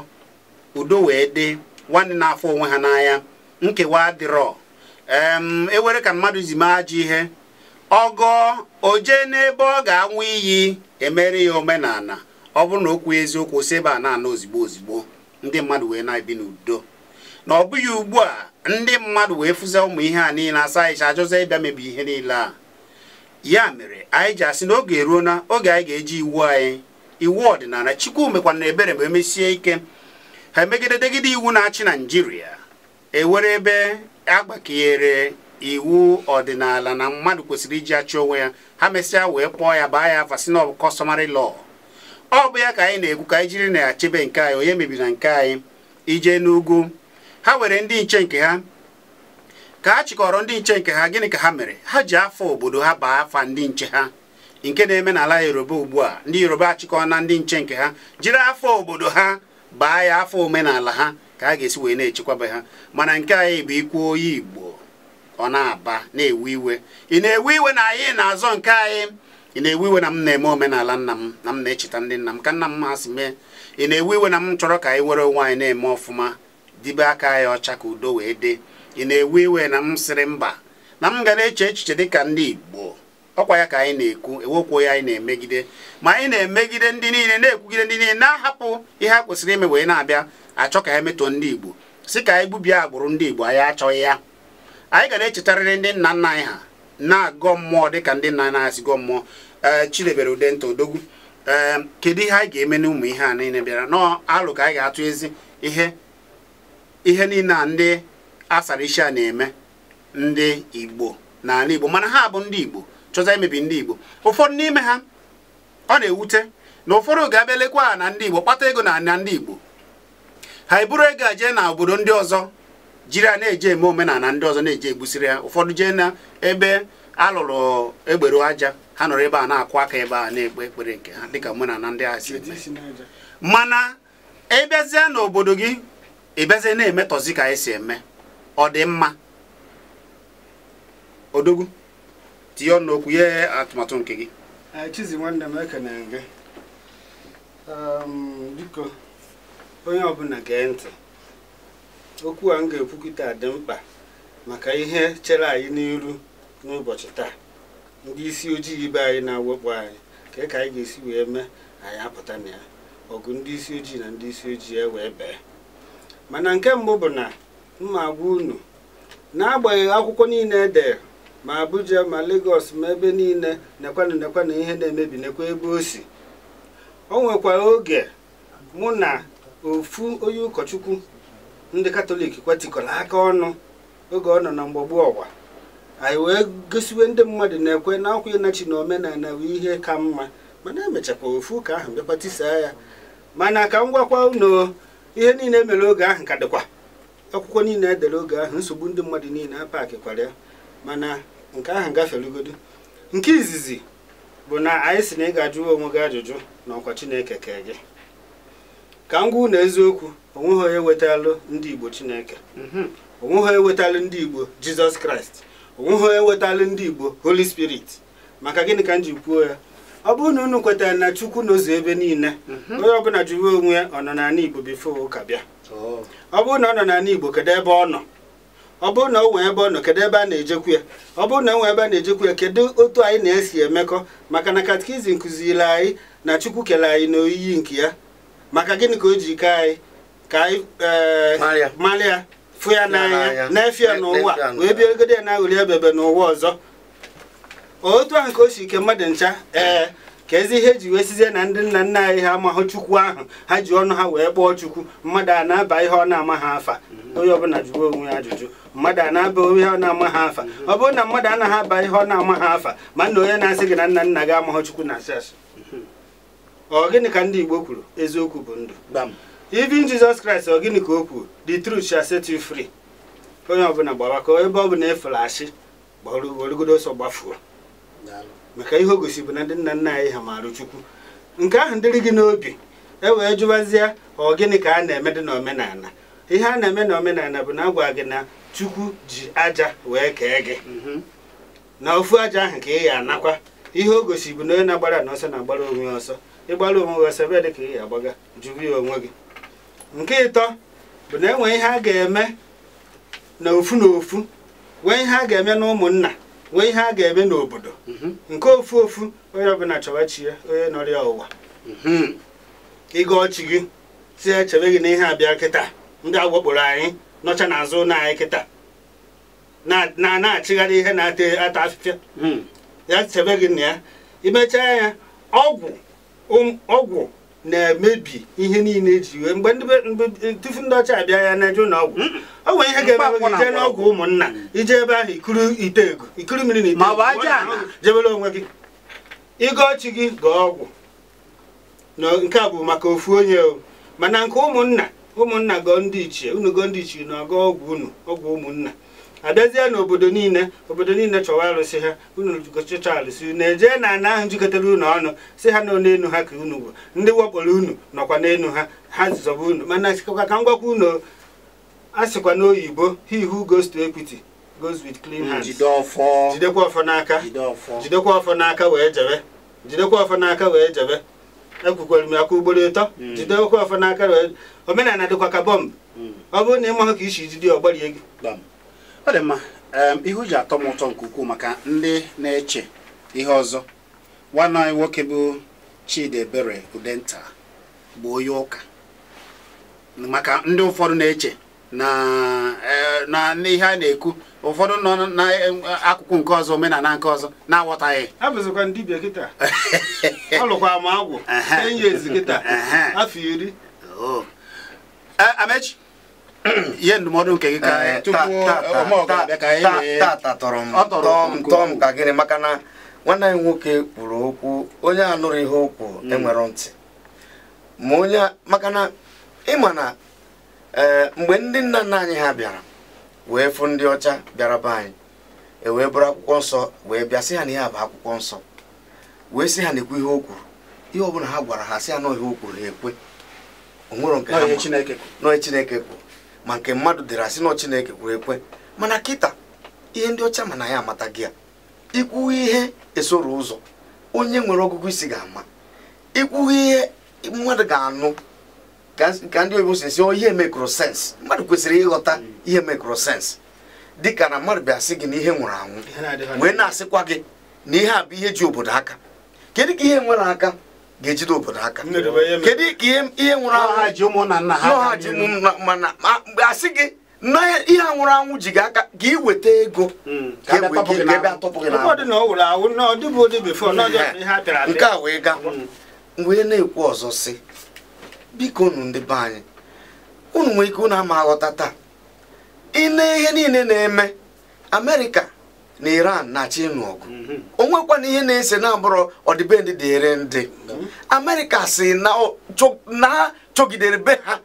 udo wee dị nwanne na-afọ onwe ha n'anya nkewa adịrọ ewere e ka mmadụ zime ajọ ihe ọgọ jee n'ebe ọ ga-anwụ iyi emere ya omenala ọ bụrụ na okwu eziokwu si ebe a na-ana ozigbo ozigbo ndị mmadụ wee na-ebi n'udo na ọ bụghị ugbu a ndị mmadụ wee fụzie ụmụ ihe a niile asa anyị ajọzọ ịbịa mebi ihe niile a ya mere anyị ji asị na oge eruo na oge anyị ga-eji iwu anyị iwu ọdịnala Chukwumekwana na ebere ma emesie ike ha emegide degide iwu na-achị Naijiria ewere ebe agbakeyere iwu ọdịnala na mmadụ kwesịrị iji achị onwe ya ha mesịa wee kpọọ ya baa ya afa si na ọ bụ customary law ọ bụ ya ka anyị na-ekwu ka anyị jiri na ya chebe nke anyị onye mebiri na nke anyị ije n'ugwu ha were ndị nche nke ha ka ha chịkọrọ ndị nche nke ha gịnị ka ha mere ha ji afọ obodo ha baa afa ndị nche ha nke na-eme n'ala yoruba ugbu a ndị yoruba achịkọ na ndị nche nke ha jiri afọ obodo ha baa ya afọ omenala ha ka a ga-esi wee na-echekwabe ha mana nke anyị bụ ikwu oyi igbo ọ na-aba na-ewe iwe ị na-ewe iwe na anyị na-azọ nke anyị ị na-ewe iwe na m na-eme omenala nna m na m na-echeta ndị nna m ka nna m masị mee ị na-ewe iwe na m chọrọ ka anyị were onwe anyị na-eme ọfụma tibe aka ya ọcha ka udo wee dị ị na-ewe iwe na m sịrị mba na m ga na-eche echiche dị ka ndị Igbo ọkwa ya ka anyị na-ekwu ewokwuo ya anyị na-emegide ma anyị na-emegide ndị niile na-ekwugide ndị niile na-ahapụ ihe a kwesịrị ime wee na-abịa achọ ka ha metụọ ndị Igbo si ka anyị gbubie agbụrụ ndị Igbo anyị achọghị ya anyị ga na-echetarịrị ndị nna nna anyị ha na-agọ mmụọ dị ka ndị nna anyị si gọọ mmụọ ee Chidebere Udenta Odogwu ee kedu ihe anyị ga-eme n'ụmụ ihe a niile bịara alụ ka anyị ga-atụ ezi ihe ihe niile a ndị asara a na-eme ndị igbo n'ala igbo mana ha bụ ndị igbo chọta imebi ndị igbo ụfọdụ n'ime ha ọ na-ewute na ụfọdụ ga-abịa lekwa na ndị igbo kpata ego na na ndị igbo ha eburu ego a jee na obodo ndị ọzọ jiri a na-eje eme omenala ndị ọzọ na-eje egbusiri ya ụfọdụ jee na ebe alụrụ egberu aja ha nọrọ ebe a na-akụ aka ebe a na-ekpe ekpere nke ha dịka omenala ndị ahụ si eme mana ị na n'obodo gị ị bịazie na-emetọzi ka anyị si eme ọ dị mma odogwu tinye ọnụ okwu ihe atụmatụ nke gị chizi nwanne m na gị ehm, biko onye ọbụla gee ntị okwu a m ga-ekwukịta dị mkpa maka ihe chere anyị n'iru n'ụbọchị taa ndị isi ojii ibe anyị na-awepụ anyị ka e ka anyị ga-esi wee mee anyị apụta na ya ọgụ ndị isi ojii na ndị isi ojii e wee bee mana nke mbụ bụ na mma gwa unu n'agbanyeghị akwụkwọ niile edere ma Abuja ma Lagos ma ebe niile nekwanụ nekwanụ ihe na-emebi nekwa ebe o si o nwekwara oge mụ na ofu onye ụkọchukwu ndị katọlik kwetịkọrọ aka ọnụ oge ọ nọ na mgbagbu ọwa anyị wee gosiwe ndị mmadụ na-ekwe na akwa ịnachi na omenala wee ihe ka mma mana emechakwa ofu ụka ahụ bịakwa tisaa ya mana ka m gwakwa unu ihe niile emere oge ahụ ka dịkwa akwụkwọ niile edere oge ahụ nsogbu ndị mmadụ niile a ya mana nke ahụ gaferugodo nke izizi bụ na anyị si na ị ga onwe gị ajụjụ na ọkwa chineke kee gị ka m gwa na eziokwu onweghị onye wetalụ ndị igbo chineke mhm. onweghị onye wetalụ ndị igbo jizọs kraịst onweghị onye wetalụ ndị igbo holy spirit maka gịnị ka m ji kwuo ya ọ bụrụ na unu kwetara na chukwu na ebe niile mhm. onye ọbụla jụrụ onwe ya ọ nọ n'ala igbo bifo ụka bịa ọ bụrụ na ọ nọ n'ala igbo kedu ebe ọ nọ ọ bụrụ na o nwee ebe ọ nọ kedu ebe a na-ejekwu ya ọ bụrụ na o nwee ebe a na-ejekwu ya kedu otu anyị na-esi emekọ maka na katikizim kuziri anyị na chukwu kere anyị na oyiyi nke ya maka gịnị ka o ji ke anyị ka anyị ee eh, fụ ya n'anya na-efe ya n'ụwa wee bịa egode ya na aghụli ebebe n'ụwa ọzọ otu ahụ ka o si ike mmadụ ncha ee ka ezi ihe ji wee sizie na ndị nna nna anyị ha amahụ chukwu ahụ ha ji ọnụ ha wee kpọọ chukwu mmadụ a na-aba ihe ọ na-ama ha afa onye ọbụla jụwa onwe ya ajụjụ mmadụ a na-aba ihe ọ na-ama ha afa ọ bụrụ na mmadụ anaghị aba ihe ọ na-ama ha afa ma nna onye na-asị gị na nna nna gị amahụ chukwu na asị asị ọ gịnị ka ndị igbo kwuru eziokwu bụ ndụ ivin jizọs kraịst ọ gịnị ka o kwuru the truth shall set you free onye ọbụla gbawa ka ebe ọ bụla efere asị gbọrụgodo ọsọ gbafuo maka ihe o bụ na ndị nna nna anyị ha maara chukwu nke ahụ dịrị gị n'obi e wee jụwazie ọ gịnị ka a na-eme dị n'omenala ihe a na-eme n'omenala bụ na agwa gị na chukwu ji aja wee kee gị na ofu aja ahụ ka ị ya anakwa ihe o gosi bụ na onye na-agbara n'ọsọ na-agbara onwe ya ọsọ ịgbara onwe gị ọsọ bịa dị ka ị ya agbaga jụrụ ya onwe gị nke ịtọ bụ na nwee ihe a ga-eme na ofu na ofu nwee ihe a ga-eme na ụmụnna nwee ihe a ga-eme n'obodo mhm. nke ofu ofu onye ọbụla chọwa chi onye nọrọ ya ụwa mhm. ịga ọchị gị tie chebe gị na ihe abịa kịta ndị agwakporo anyị nọcha n'azụ ụlọ anyị kịta na na-achịgharị ihe na-ata ata afịfịa mhm. ya chebe gị na ya imechaa ya ọgwụ um, ọgwụ na-emebi ihe niile eji iwe mgbe tufu ndị ọcha abịa ya na-eje ụlọ ọ nwere ihe ga-eme gị jee n'ọgwụ ụmụnna ije ebe ahụ ikuru ite ego ikuru mmiri na ite ego jebere onwe gị ịga ọchị gị gaa ọgwụ nke a bụ maka ofu onye o mana nke ụmụnna ụmụnna gọọ ndị ichie unu gọọ ndị ichie na ọgọ ọgwụ unu ọgwụ ụmụnna abịazie n'obodo niile obodo niile chọwa arụsị ha unu gochicha arụsị unu ejee na ana ahụ jikọtara unu ọnụ si ha nọ n'elu ha ka unu bụ ndị wakporo unu nọkwa n'elu ha ha zọba unu mana sikwa ka m gwakwa unu a sịkwa n'oyibo he who goes to equity goes with clean hands jidekwa ọfọ n'aka jidekwa ọfọ n'aka wee jebe jidekwa ọfọ n'aka wee jebe ekwukwara m aka ugboro ịtọ hmm. jidekwa ọfọ n'aka wee omenala dịkwa ka bọmbụ hmm. ọ bụrụ na ị maghị ka isi jide ọgbarie gị ọ dị mma ihu ji atọ m ụtọ nke ukwuu maka ndị na-eche ihe ọzọ nwanne anyị nwoke bụ Chidi Ebere Udenta bụ onye ụka maka ndị ụfọdụ na-eche na e, ihe a na-ekwu ụfọdụ nọ n'akụkụ nke ọzọ omenala nke ọzọ na-aghọtaghị ihe ndụmọdụ nke gị ka tata tọrọ m tọọ m tọọ m ka gịnị maka na nwanne anyị nwoke kwuru okwu onye anụrụ ihe okwu enwere ntị ma onye maka na ịma na mgbe ndị nna nna anyị ha bịara wee fụ ndị ọcha bịara be anyị e wee bụrụ akwụkwọ nsọ wee bịa sị ha na ihe a bụ akwụkwọ nsọ wee sị ha na-ekwu ihe o kwuru ihe ọbụla ha gwara ha sị ha na ihe o kwuru ha ekwe onwere nke ha nọọ Chineke kwuru ma nke mmadụ dịrị asị na Chineke kwuru ekwe mana kịta ihe ndị ọcha mana ya amata gị ya ikwughị ihe esoro ụzọ onye nwere ọgụgụ isi ga-ama ikwughị ihe mmadụ ga-anụ ka ndị oyibo si ọ oh, ihe mekrosens mmadụ kwesịrị ịghọta ihe dị dịka na mmadụ bịa sị gị na ihe nwụrụ anwụ wee na-asịkwa gị na ihe a bụ ihe ji obodo aka kedu ka ihe nwere aka ga-ejide obodo aka kedu ka ihe nwụrụ anwụ mana mgbe a sị gị na ihe anwụrụ anwụ ji gị aka ka iweta ego nke a wee ga hmm. wee na-ekwu ọzọ sị biko unu ndị be anyị unu nwee ike unu ama aghọta taa ị na ihe niile na-eme amerika na iran na-achị ịnụ mhm. onwekwa na ihe na-ese na-abụrụ ọdịbendị dịrị ndị amerịka si na chogidere be ha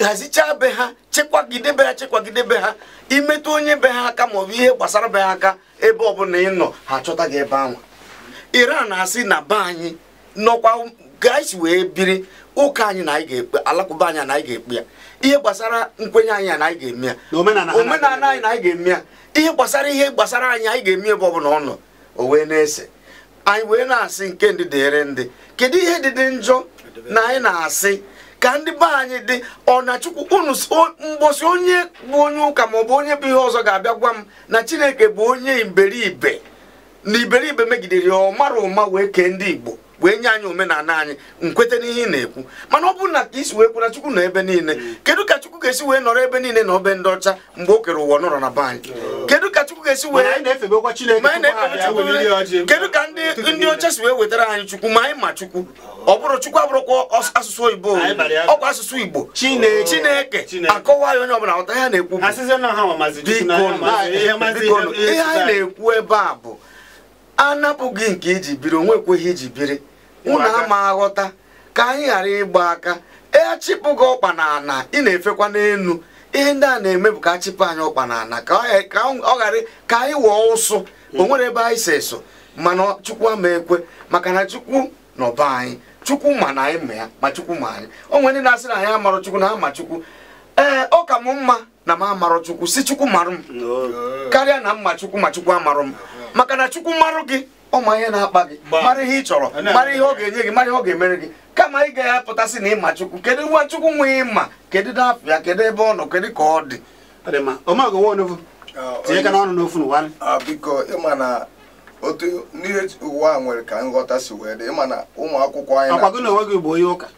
hazichaa be ha chekwagide be ha chekwagide be ha imetụ onye be ha aka maọbụ ihe gbasara be ha aka ebe ọbụla ị nọ ha achọta gị ebe ahụ iran na-asị na be anyị nọkwa ka wee biri ụka anyị na anyị ga-ekpe alakụba anyị na anyị ga-ekpe ya ihe gbasara nkwenye anyị na anyị ga-eme ya omenala anyị na anyị ga-eme ya ihe gbasara ihe gbasara anyị anyị ga-eme ebe ọbụla ọ nọ o wee na-ese anyị wee na-asị nke ndị dịrị ndị kedu ihe dị dị njọ na anyị na-asị ka ndị be anyị dị ọ na chukwu unu mgbọsị onye bụ onye ụka maọbụ onye bụ ihe ọzọ ga-abịa gwa m na chineke bụ onye iberibe na iberibe megidere ya ọ mara ụma wee kee ndị igbo wee nye anyị omenala anyị nkwete n'ihe ị na-ekwu mana ọ bụrụ na ka isi wee kwu na chukwu nọ ebe niile kedu ka chukwu ga-esi wee nọrọ ebe niile na obe ndị ọcha mgbe o kere ụwa nọrọ na be kedụ kedu ka chukwu ga-esi wee kedu ka ndị ọcha si wee wetara anyị chukwu ma anyị ma chukwu ọ bụrụ chukwu abụrụkwa asụsụ oyibo ọkwa asụsụ igbo chineke akọwa ya onye ọbụla ghọta ya na-ekwu ihe anyị na-ekwu ebe a bụ anapụghị nke iji biri onwe ekweghị iji biri unu ama aghọta ka anyị ghara ịgba aka echịpụ gị ọkpa na ị na-efekwa n'elu ihe ndị a na-eme bụ ka achịpụ anyị ọkpa na ka ọ ghara ka anyị wụọ ụsụ o nwere ebe anyị si eso mana chukwu ama ekwe maka na chukwu nọ be anyị chukwu ma na anyị ma ya ma chukwu ma anyị o nwere ndị na-asị na anyị amarọ chukwu na ama chukwu ee ọ ka m mma na m amarọ chukwu si chukwu marụ m karịa na mma chukwu ma chukwu amarọ m maka na chukwu marụ gị Ọ ụmụ ihe na-akpa gị mara ihe ị chọrọ mara ihe ọ ga-enye gị mara ihe ọ ga-emere gị kama ị gaghị apụtasị na ịma chukwu kedu nwa chukwu nwe ịma kedu n'afọ ya kedu ebe ọ nọ kedu ka ọ dị ah, biko ịma na otu n'ihe ụwa nwere ka nghọta si wee dị ịma na ụmụ akwụkwọ anyị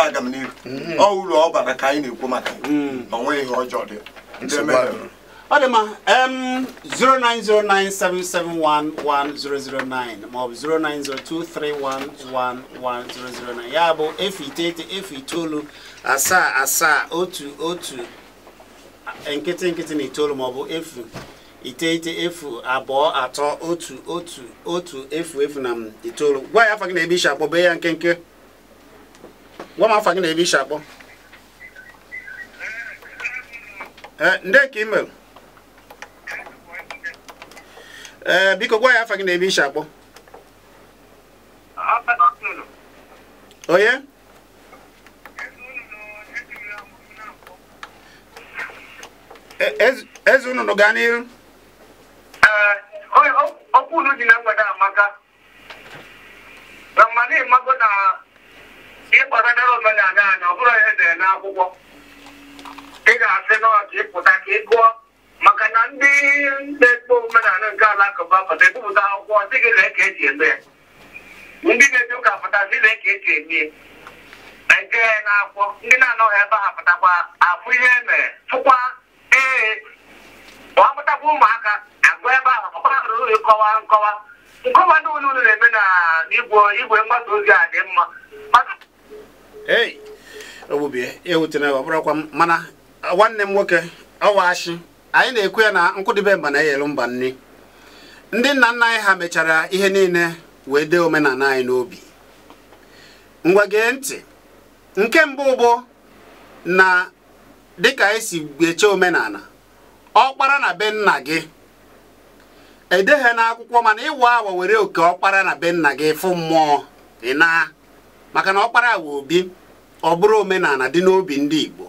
ife aga m n'ihu mm-hmm. ọ uru ọ bara ka anyị na-ekwu maka onwe mm. ihe ọjọọ dị ọ dị mma 09097711009 maọbụ 09023111009 ya bụ efu iteghete efu itoolu asaa asaa otu otu nkịtị nkịtị na itoolu maọbụ efu iteghete efu abụọ atọ otu otu otu efu efu na itoolu gwa ya afa gị na ebe isi akpọbe ya nkenke gwa m afọ gị na ebe isi akpọ e, nde ka imel ee biko gwa ya afọ gị na ebe isi akpọ onye e, eze unu gaa n'ihu okwu unu ji na mgbede amaka na mmadụ ịmago na ịkpọta dara omenala anya ọ bụrụ ihe dere n'akwụkwọ ị ga-asị n'ọdị ịpụta ka ị gụọ maka na ndị na-ekpo omenala nke alakụba pụta ebupụta akwụkwọ dị gị lee ka eji eme ndị na-eji ụka pụta dị lee ka eji eme ya na nke na-akwụkwọ ndị na-anọghị ebe ha pụtakwa afụ ihe e tụkwa ee ọ pụtakwa ụmụaka agụ ebe ahụ ọkpọrọ ịkọwa nkọwa nkọwa ndị ụlọ ụlọ na-eme na igwe mgbasa ozi a dị mma ei ogbubie ewutena ọbụrụkwa m mana nwanne m nwoke ọwashi anyị na-ekwu ya na nkwụdịbe mba na eyelu mba nri ndị nna nna anyị ha mechara ihe niile wee dee omenala anyị n'obi ngwa gee ntị nke mbụ bụ na dịka anyị e si eche omenala ọkpara na be nna gị edeghe n'akwụkwọ mana ịwa awa were oke ọkpara na be nna gị fụ mmụọ ị maka na ọkpara awa obi ọ bụrụ omenala dị n'obi ndị Igbo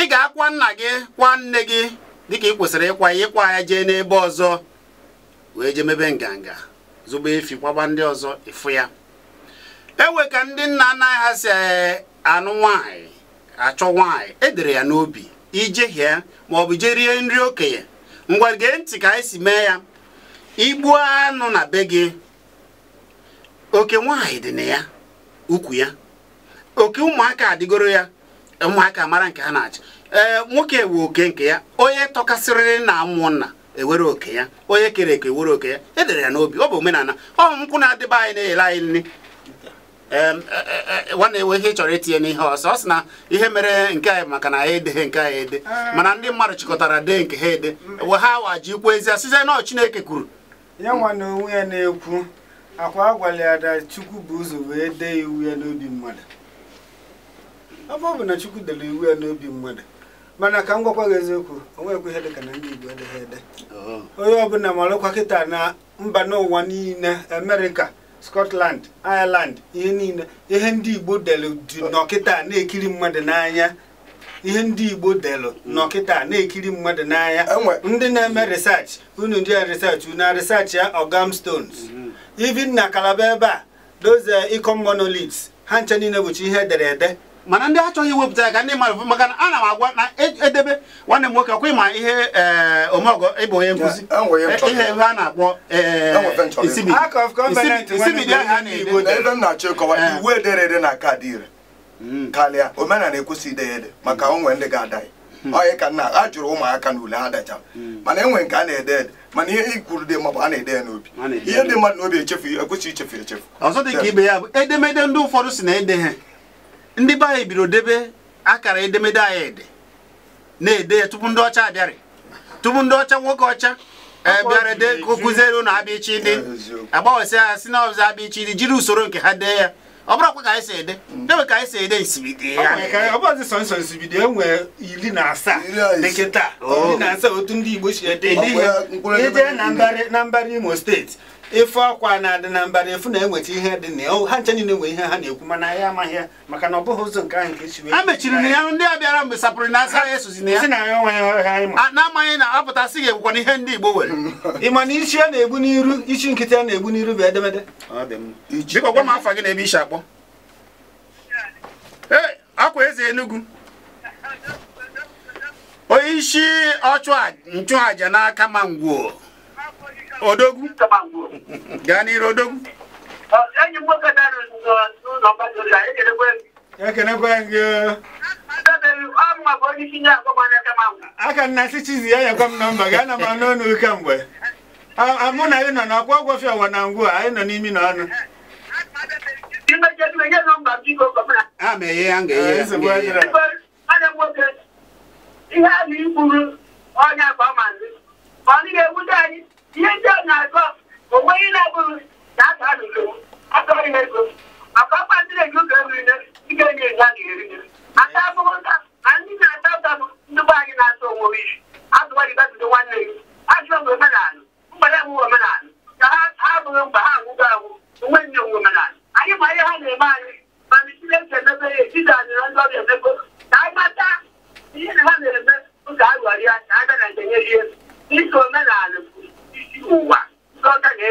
ị ga-akwa nna gị kwa nne gị dịka ị kwesịrị ịkwa ya ịkwa ya jee n'ebe ọzọ wee jee mebe nganga zụba efi kwaba ndị ọzọ ịfụ ya ewe ka ndị nna nna ha si e, anụ nwaanyị achọ nwaanyị edere ya n'obi ijehie ma ọ bụ jee rie nri okenye ngwa gee ntị ka anyị si mee ya igbuo anụ na be gị oke nwaanyị dị na ya ukwu ya oke ụmụaka adịgoro ya ụmụaka mara nke ha na-achị ee nwoke wee oke nke ya onye tọkasịrị na amụ nna ewere oke ya onye kere eke ewere oke ya edere ya n'obi ọ bụ omenala ọ nkwụ na-adịba anyị na-ele anyị nri e, e, e, nwanne enwe ihe chọrọ itinye n'ihe ọsọ ọ sị na ihe mere nke anyị maka na anyị edeghe nke anyị ede ah. mana ndị mmadụ chịkọtara dee nke ha ede we ha waji ikwu ezi asịzie na Chineke kwuru ya nwa na onwe ya na-ekwu akwa a gwara chukwu bụ ụzọ wee dee iwu ya n'obi mmadụ afọ ọ bụ na chukwu dere iwu ya n'obi mmadụ mana ka m gwakwa gị eziokwu onwekwa ihe dịka na ndị igbo edeghị ede oh. onye ọbụla marụkwa kịta na mba n'ụwa niile amerịka scotland ireland ihe niile ihe ndị igbo delu dị n'ọkịta na-ekiri mmadụ n'anya ihe ndị igbo delu n'ọkịta na-ekiri mmadụ n'anya ndị na-eme research unu ndị a research unu a research ya ogam stones mm-hmm. even na kalaba ebe a dozie ikom eh, monoliths ha nche niile bụchi ihe edere ede mana ndị achọghị iwepụta ya ka ndị mmadụ maka na ana m agwa na e, edebe nwanne m nwoke akwa ma ihe eh, omeọgọ ịbụ onye nkuzi eh, ihe ebe a na-akpọ isibidi ahụ a na-ede iwu ederede na kaadị ire hmm. karịa omenala ekwesị ide ya ede maka hmm. onwe ndị ga-ada ya onye ka nna a jụrụ ụmụaka na ule ha dacha hmm. mana enwere nke a na-ede ede mana ihe ikwuru dị mma bụ a na-ede ya n'obi ihe dị mmadụ n'obi echefu ekwesịghị ichefu echefu ọzọ dị ka ibe ya bụ edemede ndị ụfọdụ si na ede ha ndị be anyị biro debe akara edemede anyị ede na-ede ya tupu ndị ọcha abịarị tupu ndị ọcha nwoke ọcha bịara dee ka o kụziere ụnụ abịa ichi dị agbanwesị ha si na ọzọ abịa ichi dị jiri usoro nke ha dee ya ọ bụrụkwa ka anyị si ede debe ka anyị si ede nsibidi ya ọbọdị sọ nsọ nsibidi e nwere iri na asaa dịkịta oh. iri na asaa otu ndị Igbo si ede ihe eje na mbara Imo steeti ife ọkwa na-adị na mbara efu na-enweta ihe dị na ya ha nche niile nwere ihe ha na-ekwu mana anyị amaghị ya maka na ọ bụghị ụzọ nke ahụ nke esi wee. a mechiri na ya ndị a bịara mgbe sapụrụ na asa ya esozi na ya na-amaghị na apụta sị ga-ekwukwa na ihe ndị Igbo nwere ịma na isi a na-egbu n'iru isi nkịtị a na-egbu n'iru bụ edemede biko gwa m afa gị na ebe isi akpọ ee akwa eze Enugu onye isi ọchụ nchụaja n'aka ma ngwuo odogwu gaa n'iru odogwu ekenekwe gị e. aka nna si chizi ya nyekwa m nọmba gaa na m anụ ọnụ uke mgbe mụ na anyị nọ n'ọkwa ọgwọfi ọwa na ngwu anyị nọ n'imi na ọnụ ma ọ ihe ndị ọ na-agọ onwe ihe na abụrụ na aga a n'usoro akọrị na ego maka ọkpa ndị na-eji ụka eriri ike enye enye a ga-eriri aka abụghị nta na ndị na-ata ụta bụ ndị anyị na-ata onwe isi azụgbajibabido nwanne gị ajụọ m omenala mgbada omenala ka ha abụghị mgbe ha anwụgo anwụ onwe nne nwe omenala anyị ma ihe ha na-eme anyị mana isi na-eji emebe ya etiti anyị na ndị ọbịa na ha na-eme ka omenala ụwa ọka onye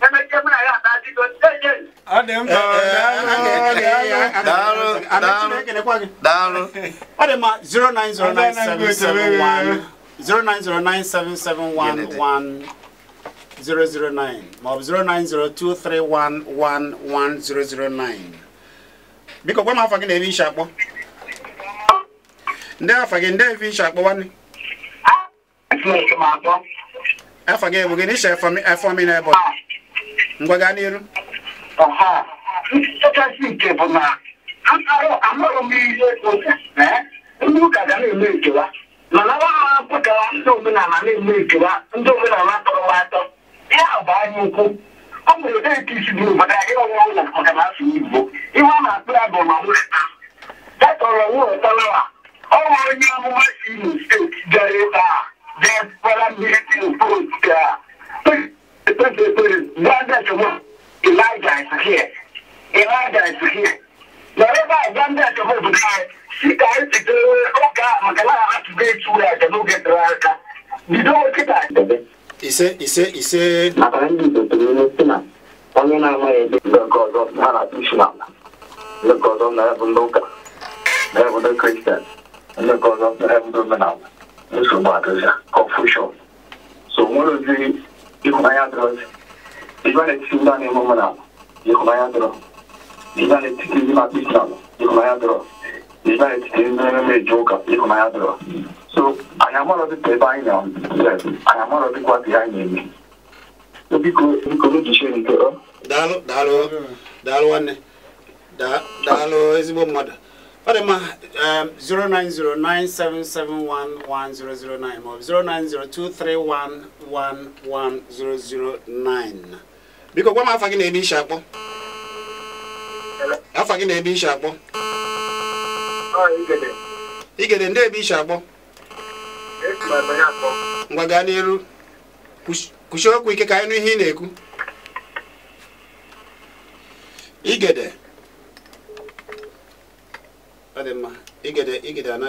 anyị na ya na ọ dị biko gwa m afọ gị na ebi ishi akpọ ndị afọ gị ndị ebi ishi akpọ nwanne afọ gị ebu gịnị iche afọ mi na ebe ngwa gaa n'iru nchekasị nke bụ na amaghị m ihe ndị ụka ga na-eme nkewa mana nwa ha pụtara ndị omenala na-eme nkewa ndị omenala tọrọ atọ ya bụ anya ukwu ọ nwere deeti isi bụ obodo anyị ọnwa ụlọ maka na asụ igbo ihe a na-akpụ ya bụ ma nweta datọrọ nweta a. ọ nwere onye amụma si imo steeti bịara ebe a There's vulnerability the Elijah is here. Elijah is here. Wherever to get to where they don't get You don't get that. Ise ise ise. Maka ndị Igbo tụrụ onye si na onye na na-atụchi na kristian, nsogbu atụzịa confusion so nwere ozi ịhụnanya dọrọ ịba na-etiti ndị a na-eme ụmụnala ịhụnanya dọrọ ịba na-etiti ndị na-akpa isi ala ịhụnanya dọrọ ịba na-etiti ndị na-emeju ụka ịhụnanya dọrọ so anyị amarọ dịka ebe anyị na anyị amarọ dịkwa dị anyị na-eme biko biko n'ujiche nke ọ daalụ daalụ daalụ nwanne daalụ ezigbo mmadụ Fadima um, 0909771109 or 09023111009 biko gwa m afa gị na ebe ishi akpọ afa gị na ebe ishi akpọ igede ah, ndị ebe ishi akpọ ngwa gaa n'elu kwuchie okwu ike ka anyị nụ ihe ị na-ekwu igede dị mma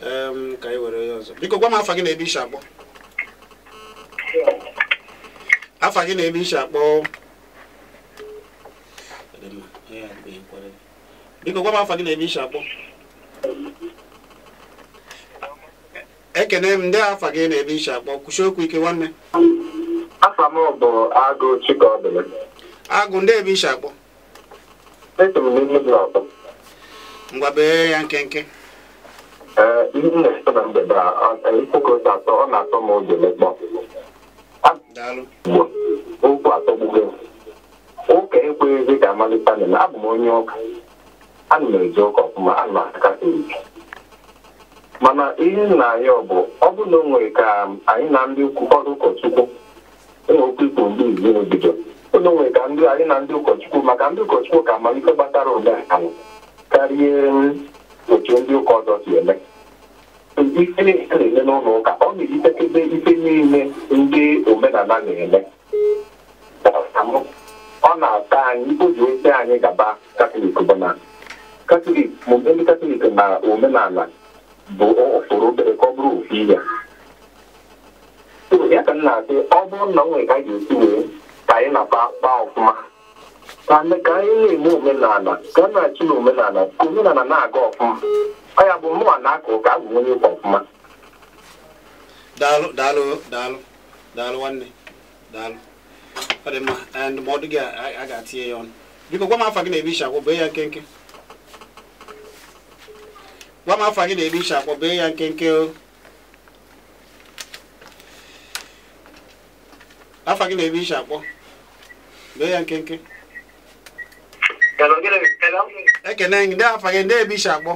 ka anyị were ọzọ biko gwa m afa gị na ebe ishi akpọ afa gị na ebe ishi akpọ biko gwa afa gị na ebe ishi akpọ ekene m ndị afa gị na ebe ishi akpọ Kwụsị okwu ike nwanne afa m bụ agụ chikobi ndị ebe ishi akpọ ngwa ya nkenke eh, na na a ọ na-atọ m ụjọ mekpọ okwu atọ ka amalite na abụ m mana ihe nna anyị bụ ọ bụ na o nwere ka anyị na ndị ụkọchukwu ụmụ okwu ikpo ndị izi ụlọ nwere ka anyị na ndị ụkọchukwu maka ndị ụkọchukwu ka amalite gbatara karịa otu ndị ụka ọzọ si eme ife a na-eme n'ụlọ ụka ọ na-ejitekebe ife niile ndị omenala na-eme ọ na-ata anyị oji ose anyị gaba katọlik bụ na katọlik ndị katọlik na omenala bụ ụfụrụ obere ka ọ bụrụ ofu ihe ya ka m na-asị ọ bụrụ na m nwere ka a ga-esi wee ka anyị na-akpa akpa ọfụma mana ka anyị na-eme omenala ka a na na omenala omenala na-aga ọfụma ọ ya bụ mụnwa na-aka ụka abụ onye ụka ọfụma daalụ daalụ daalụ daalụ nwanne daalụ ọ dị mma ndụmọdụ gị a ga-atinye ya ọnụ biko gwa m gị na-ebe e ishi akwọ bee ya nkenke Um, ekene ndị afa gị ndị ebe isi akpọ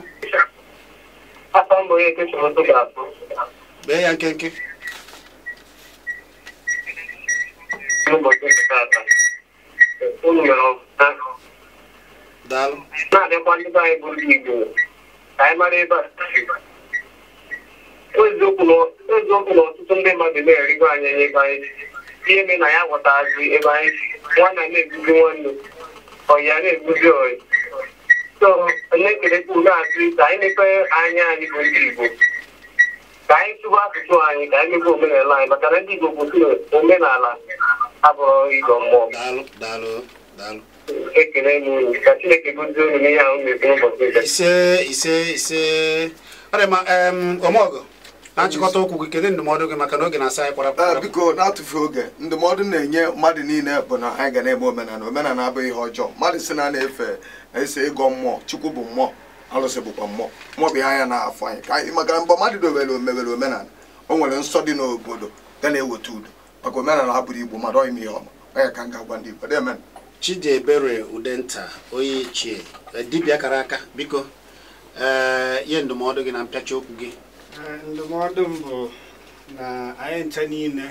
bee ya nkenke daalụ na-adịkwa ndị anyị bụrụ igbo anyị mara ebe a eziokwu na ọtụtụ ndị mmadụ na-erigo anyị ebe anyị ihe mere na ya ghọtazi ebe anyị nwanne na-ebuzi nwanne ọ̀yàrá ìgbúdọ̀ ọ̀yìn so onekeleku na-atụ ka anyị mepee anya anyị bụ ndị Igbo ka anyị tụba asụsụ anyị ka anyị mepee omenala anyị maka na ndị Igbo bụ omenala abụrụ ịgọ mmụọ ekele m unu ka Chineke gozie unu n'ihe ahụ mebiri ụbọchị ise ise ise ọrịa ma ọmọgọ na nchịkọta okwu gị kedu ndụmọdụ gị maka na oge na-asa anyị ah, kpọrọ biko na-atụfu oge ndụmọdụ na-enye mmadụ niile bụ na anyị ga na-eme omenala omenala abụghị ihe ọjọọ mmadụ si na na-efe ese ịgọ mmụọ chukwu bụ mmụọ alụsị bụkwa mmụọ mmụọ ihe anya na-afọ anyị ka anyị maka mgbe mmadụ omewere omenala o nwere nsọ dị n'obodo ga na-eweta udo maka omenala igbo mmadụ m ihe ka m ga-agwa ndị igbo chidiebere udenta onye ichie eh, dibịa kara aka biko ee eh, ihe ndụmọdụ gị na mpịacha okwu gị ndụmọdụ m bụ na anyị ncha niile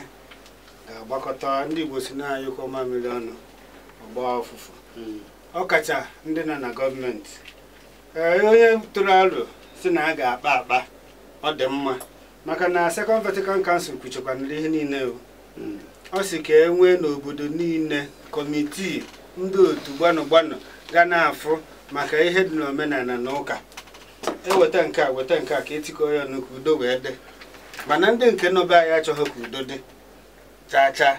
ga-agbakọta ndị Igbo si na ọma mmiri ọnụ ọgba ọfụfụ hmm. ọkacha ndị nọ na gọọmenti onye tụrụ aro si na a ga-akpa akpa ọ dị mma maka na sekọnd Vatican Council kwuchekwanara ihe niile hmm. ọ sị ka e nwee n'obodo niile kọmitii ndị otu gbanụ gbanụ ga na-afụ maka ihe dị n'omenala na ụka eweta nke a weta nke a ka etikọ ya ọnụ ka udo wee dị mana ndị nke nọbe anyị achọghị ka udo dị cha chaa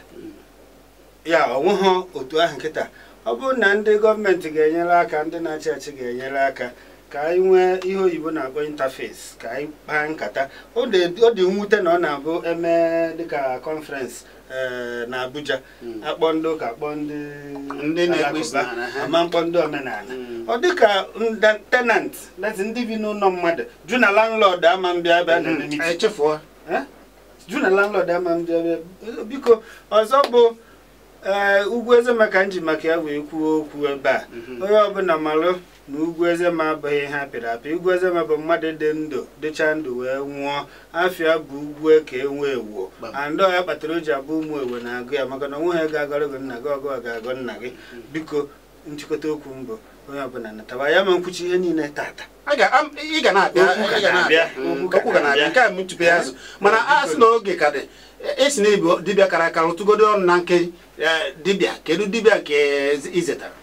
ya onweghị otu ahụ nkịta ọ bụrụ na ndị gọọmenti ga-enyere aka ndị na-achị achị ga-enyere aka ka anyị nwee ihe oyibo na-akpọ interface ka anyị kpaa nkata ọ dị mwute na ọ na-abụ eme dịka conference eh, na Abuja hmm. akpọ ndị ụka akpọ ndị na-ekwesị alakụba ama mkpọ ndị omenala hmm. ọ dịka tenant ndị bi n'ụlọ mmadụ jụ na landlord ama mbịa bịa hmm. eh? jụ na landlord ama mbịa bịa biko ọzọ bụ ee eh, ugwu eze nji maka ya wee kwuo okwu ebe a onye ọbụla malụ na ugwu ma abụghị ihe apịrị apị ugwu ezema bụ mmadụ dị ndụ dịcha ndụ wee nwụọ afịa bụ ugwu e ka e enwe ewuo andị ọya kpatara o ji abụ ụmụ ewe na-agụ ya maka na onwe ha ga-agọrọ gị nna gị ọgụ ga-agọ nna gị hmm. biko nchịkọta okwu mbụ onye ọbụla nataba ya ma nkwuchi ihe niile tata ị ga na-abịa okwu ga na-abịa hmm. hmm. mana asị sị na oge ka dị esi na ibu dibịa kara aka rụtụgodo ọnụ na nke eh, dibịa kedu dibịa ka izetara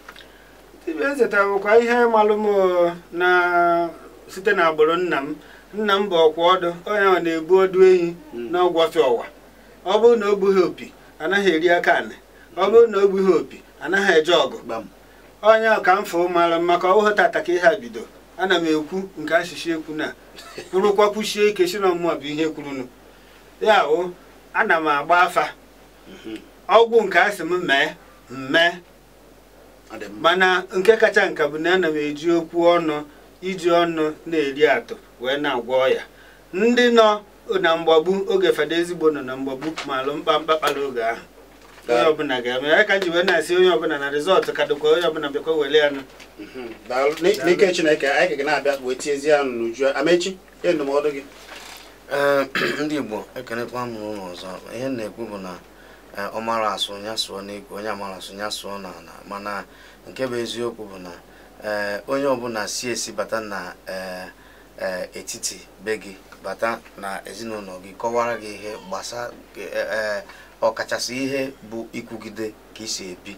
ibe ezeta bụkwa ihe malụ m na site n'agbụrụ nna m nna m bụ ọkwa ọdụ onye ọ na-ebu ọdụ ehi hmm. na ọgwọfịa ọwa ọ bụrụ na o gbughị opi anaghị eri aka anị ọ bụrụ na o gbughị opi anaghị eje ọgụ onye ọka m fụ maka ọwụhụ tata ka ihe a bido ana m ekwu nke asịsị ekwu na kwurụkwa (laughs) kwuchie ike si na mmụọ bụ ihe kwurunu ya o ana m agba afa mhm. ọgwụ nke asị m mee mmee mana nke kacha nka bụ na ana m eji okwu ọnụ iji ọnụ na-eri atụ wee na-agwọ ya ndị nọ na mgbagbu oge fada ezigbo nọ na mgbagbu ma alụ mkpamkpa kpara oge ahụ onye ọbụla ga-eme ya ka ji wee na-asị onye ọbụla na rịzọtụ ka dịkwa onye ọbụla bịakwa were ya nụ mhm. n'ike chineke anyị ga na-abịa wee tiezie ya n'uju amechi ihe ndụmọdụ gị (clears throat) ndị igbo ekenekwa m n'ụlọ ọzọ ihe na-ekwu bụ na ọ mara asụ ya n'igwe onye amara asụ ya sụọ n'ala mana nke bụ eziokwu bụ na onye ọbụla si esi bata na etiti be gị bata na ezinụlọ gị kọwara gị ihe gbasa e, e, e, ọkachasị ihe bụ ikwugide ka isi ebi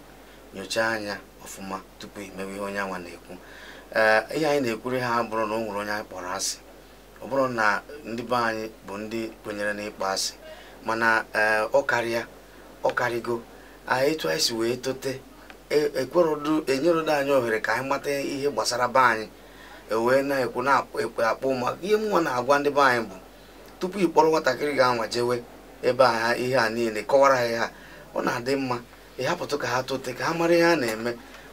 nyochaa anya ọfụma tupu imewe ihe onye anwa na-ekwu ihe anyị na-ekwuri ha bụrụ na ọ nwere onye anyị kpọrọ asị ọ bụrụ na ndị be anyị bụ ndị kwenyere n'ịkpọ asị mana ọ karịa ọkarịgo anyị tụọ isi wee tote ekwerodu e e anyị ohere ka anyị mata ihe gbasara be anyị ewee na-ekwu na-ekpe akpụ maka ihe nwa na-agwa ndị be anyị bụ tupu ị kpọrọ nwatakịrị ga-anwa jewe ebe a ihe a niile kọwara ha ihe ọ na-adị mma ịhapụtụ ka ha tote ka ha mara ihe ha na-eme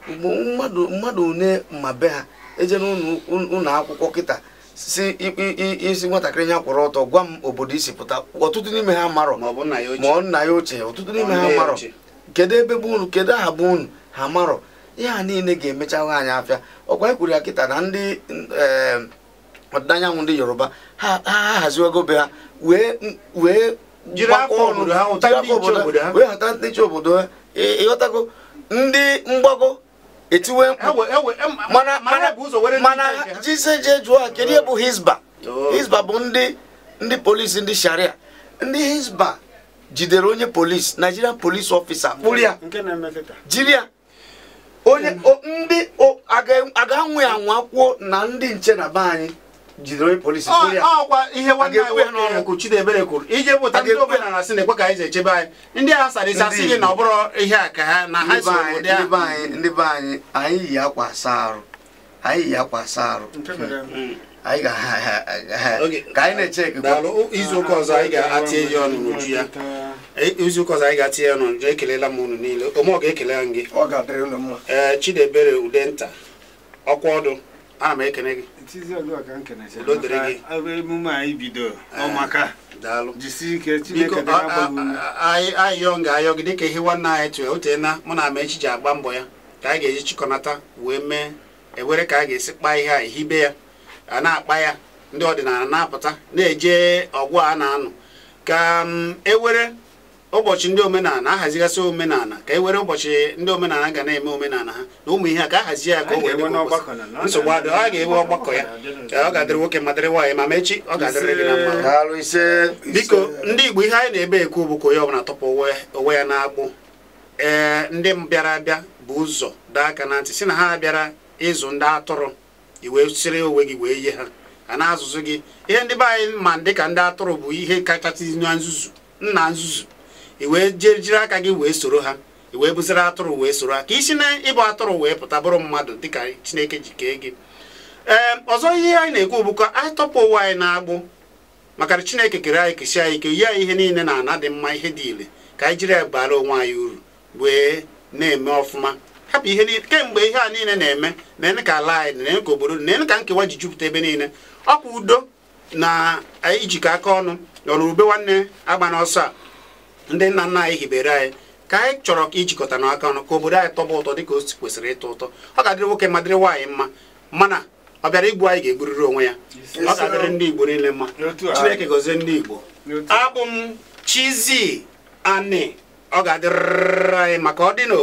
mmadụ mmadụ une ma be ha eje ụnọ akwụkwọ kịta si isi nwatakịrị ya kwụrụ ọtọ gwa m obodo isi pụta ọtụtụ n'ime ha marọ ma ọ nna ya ochie ọtụtụ n'ime ha marọ kedu ebe bụ unu kedu aha bụ unu ha marọ ya niile ga-emechahụ anyị afịa ọkwa ekwuru ya kịta na ndị ọdịda anyanwụ ndị yoruba ha haziwago be ha wee obodo ọnụ wee họta ndị chi obodo ha ịghọtago ndị mgbago etiwe mkpu mana mana jise je jụọ kedu ihe bụ hizba hizba bụ ndị ndị polisi ndị sharia ndị hizba jidere onye polisi nigerian polisi officer kpụrụ ya jiri ya onye ndị a ga-anwụ ya anwa na ndị nche na be anyị jidere onye polisi ọkwa ihe nwanne anyị nwe n'ọnụ kwuru Chidebere kwuru ije bụta ndị obenala na-asị ekwe ka anyị echebe anyị ndị a sarịsị asị gị na ọ bụrụ ihe a ka ha na ha si obodo ya ndị be anyị anyị yi akwa asa arụ anyị yi akwa asa arụ anyị ga ka anyị na-eche izu ụka ọzọ anyị ga-atinye ya ọnụ n'uju ya e, izu ụka ọzọ anyị ga-atinye ya ọnụ n'uju ekelela m unu niile ọ ga-ekele gị ee eh, Chidebere Udenta ọkwa ọdụ ana m ekele gị emume anyị bido eh, ọmaka jisi ike Chineke ayọ nga ayọ gị dịka ihe nwanne anyị tụrụ otena mụ na ama echiche agba mbọ ya ka a ga-eji chịkọnata wee mee ewere ka a ga-esi kpaa ihe a ehibe ya a na-akpa ya ndị ọdịnala na-apụta na-eje ọgwụ a na-anụ ka mm, ewere ụbọchị ndị omenala ahazigasị omenala ka e were ụbọchị ndị omenala ga na-eme omenala ha na ụmụ ihe a ka ahazi ya ka o wee nsogbu adị ọ ga ewe ọgbakọ ya ọ ga-adịrị nwoke ma dịrị nwaanyị ma mechi ọ ga-adịrị gị na mma biko ndị Igbo ihe anyị na-ebe ekwu bụ ka onye ọbụla tọpụ onwe ya na-agbụ ee ndị bịara abịa bụ ụzọ daa aka na ntị si na ha bịara ịzụ ndị atụrụ i wee siri onwe gị wee yie ha a na-azụzụ gị ihe ndị be anyị ma ka ndị atụrụ bụ ihe kachasị na nzuzu nna nzuzu i wee jiri aka gị wee soro ha i wee bụziri atụrụ wee soro ha ka isi na ịbụ atụrụ wee pụta bụrụ mmadụ dịka chineke ji kee gị ee ọzọ ihe anyị na-ekwu bụkwa anyị tọpụ ụwa anyị na-agbụ maka chineke kere anyị kesi anyị ike yie ihe niile na ana dị mma ihe dị ile ka anyị jiri ya bara onwe anyị uru wee na-eme ọfụma hapụ ihe niile kemgbe ihe a niile na-eme na-ene ka ala anyị na-ene ka obodo na-ene ka nkewa ji jupụta ebe niile ọkwa udo na ijikọ aka ọnụ nọrọ ube nwanne agba n'ọsọ a ndị nna nna anyị hibere anyị ka anyị chọrọ ijikọta n'aka ọnụ ka obodo anyị tọba ụtọ dịka o kwesịrị ịtọ ụtọ ọ ga-adịrị nwoke ma dịrị nwaanyị mma mana ọ bịara igbu anyị ga-egburiri onwe ya ọ ga-adịrị ndị Igbo niile mma Chineke gọzie ndị Igbo abụ m Chizzy Ani ọ ga-adịrị anyị maka ọ dị n'o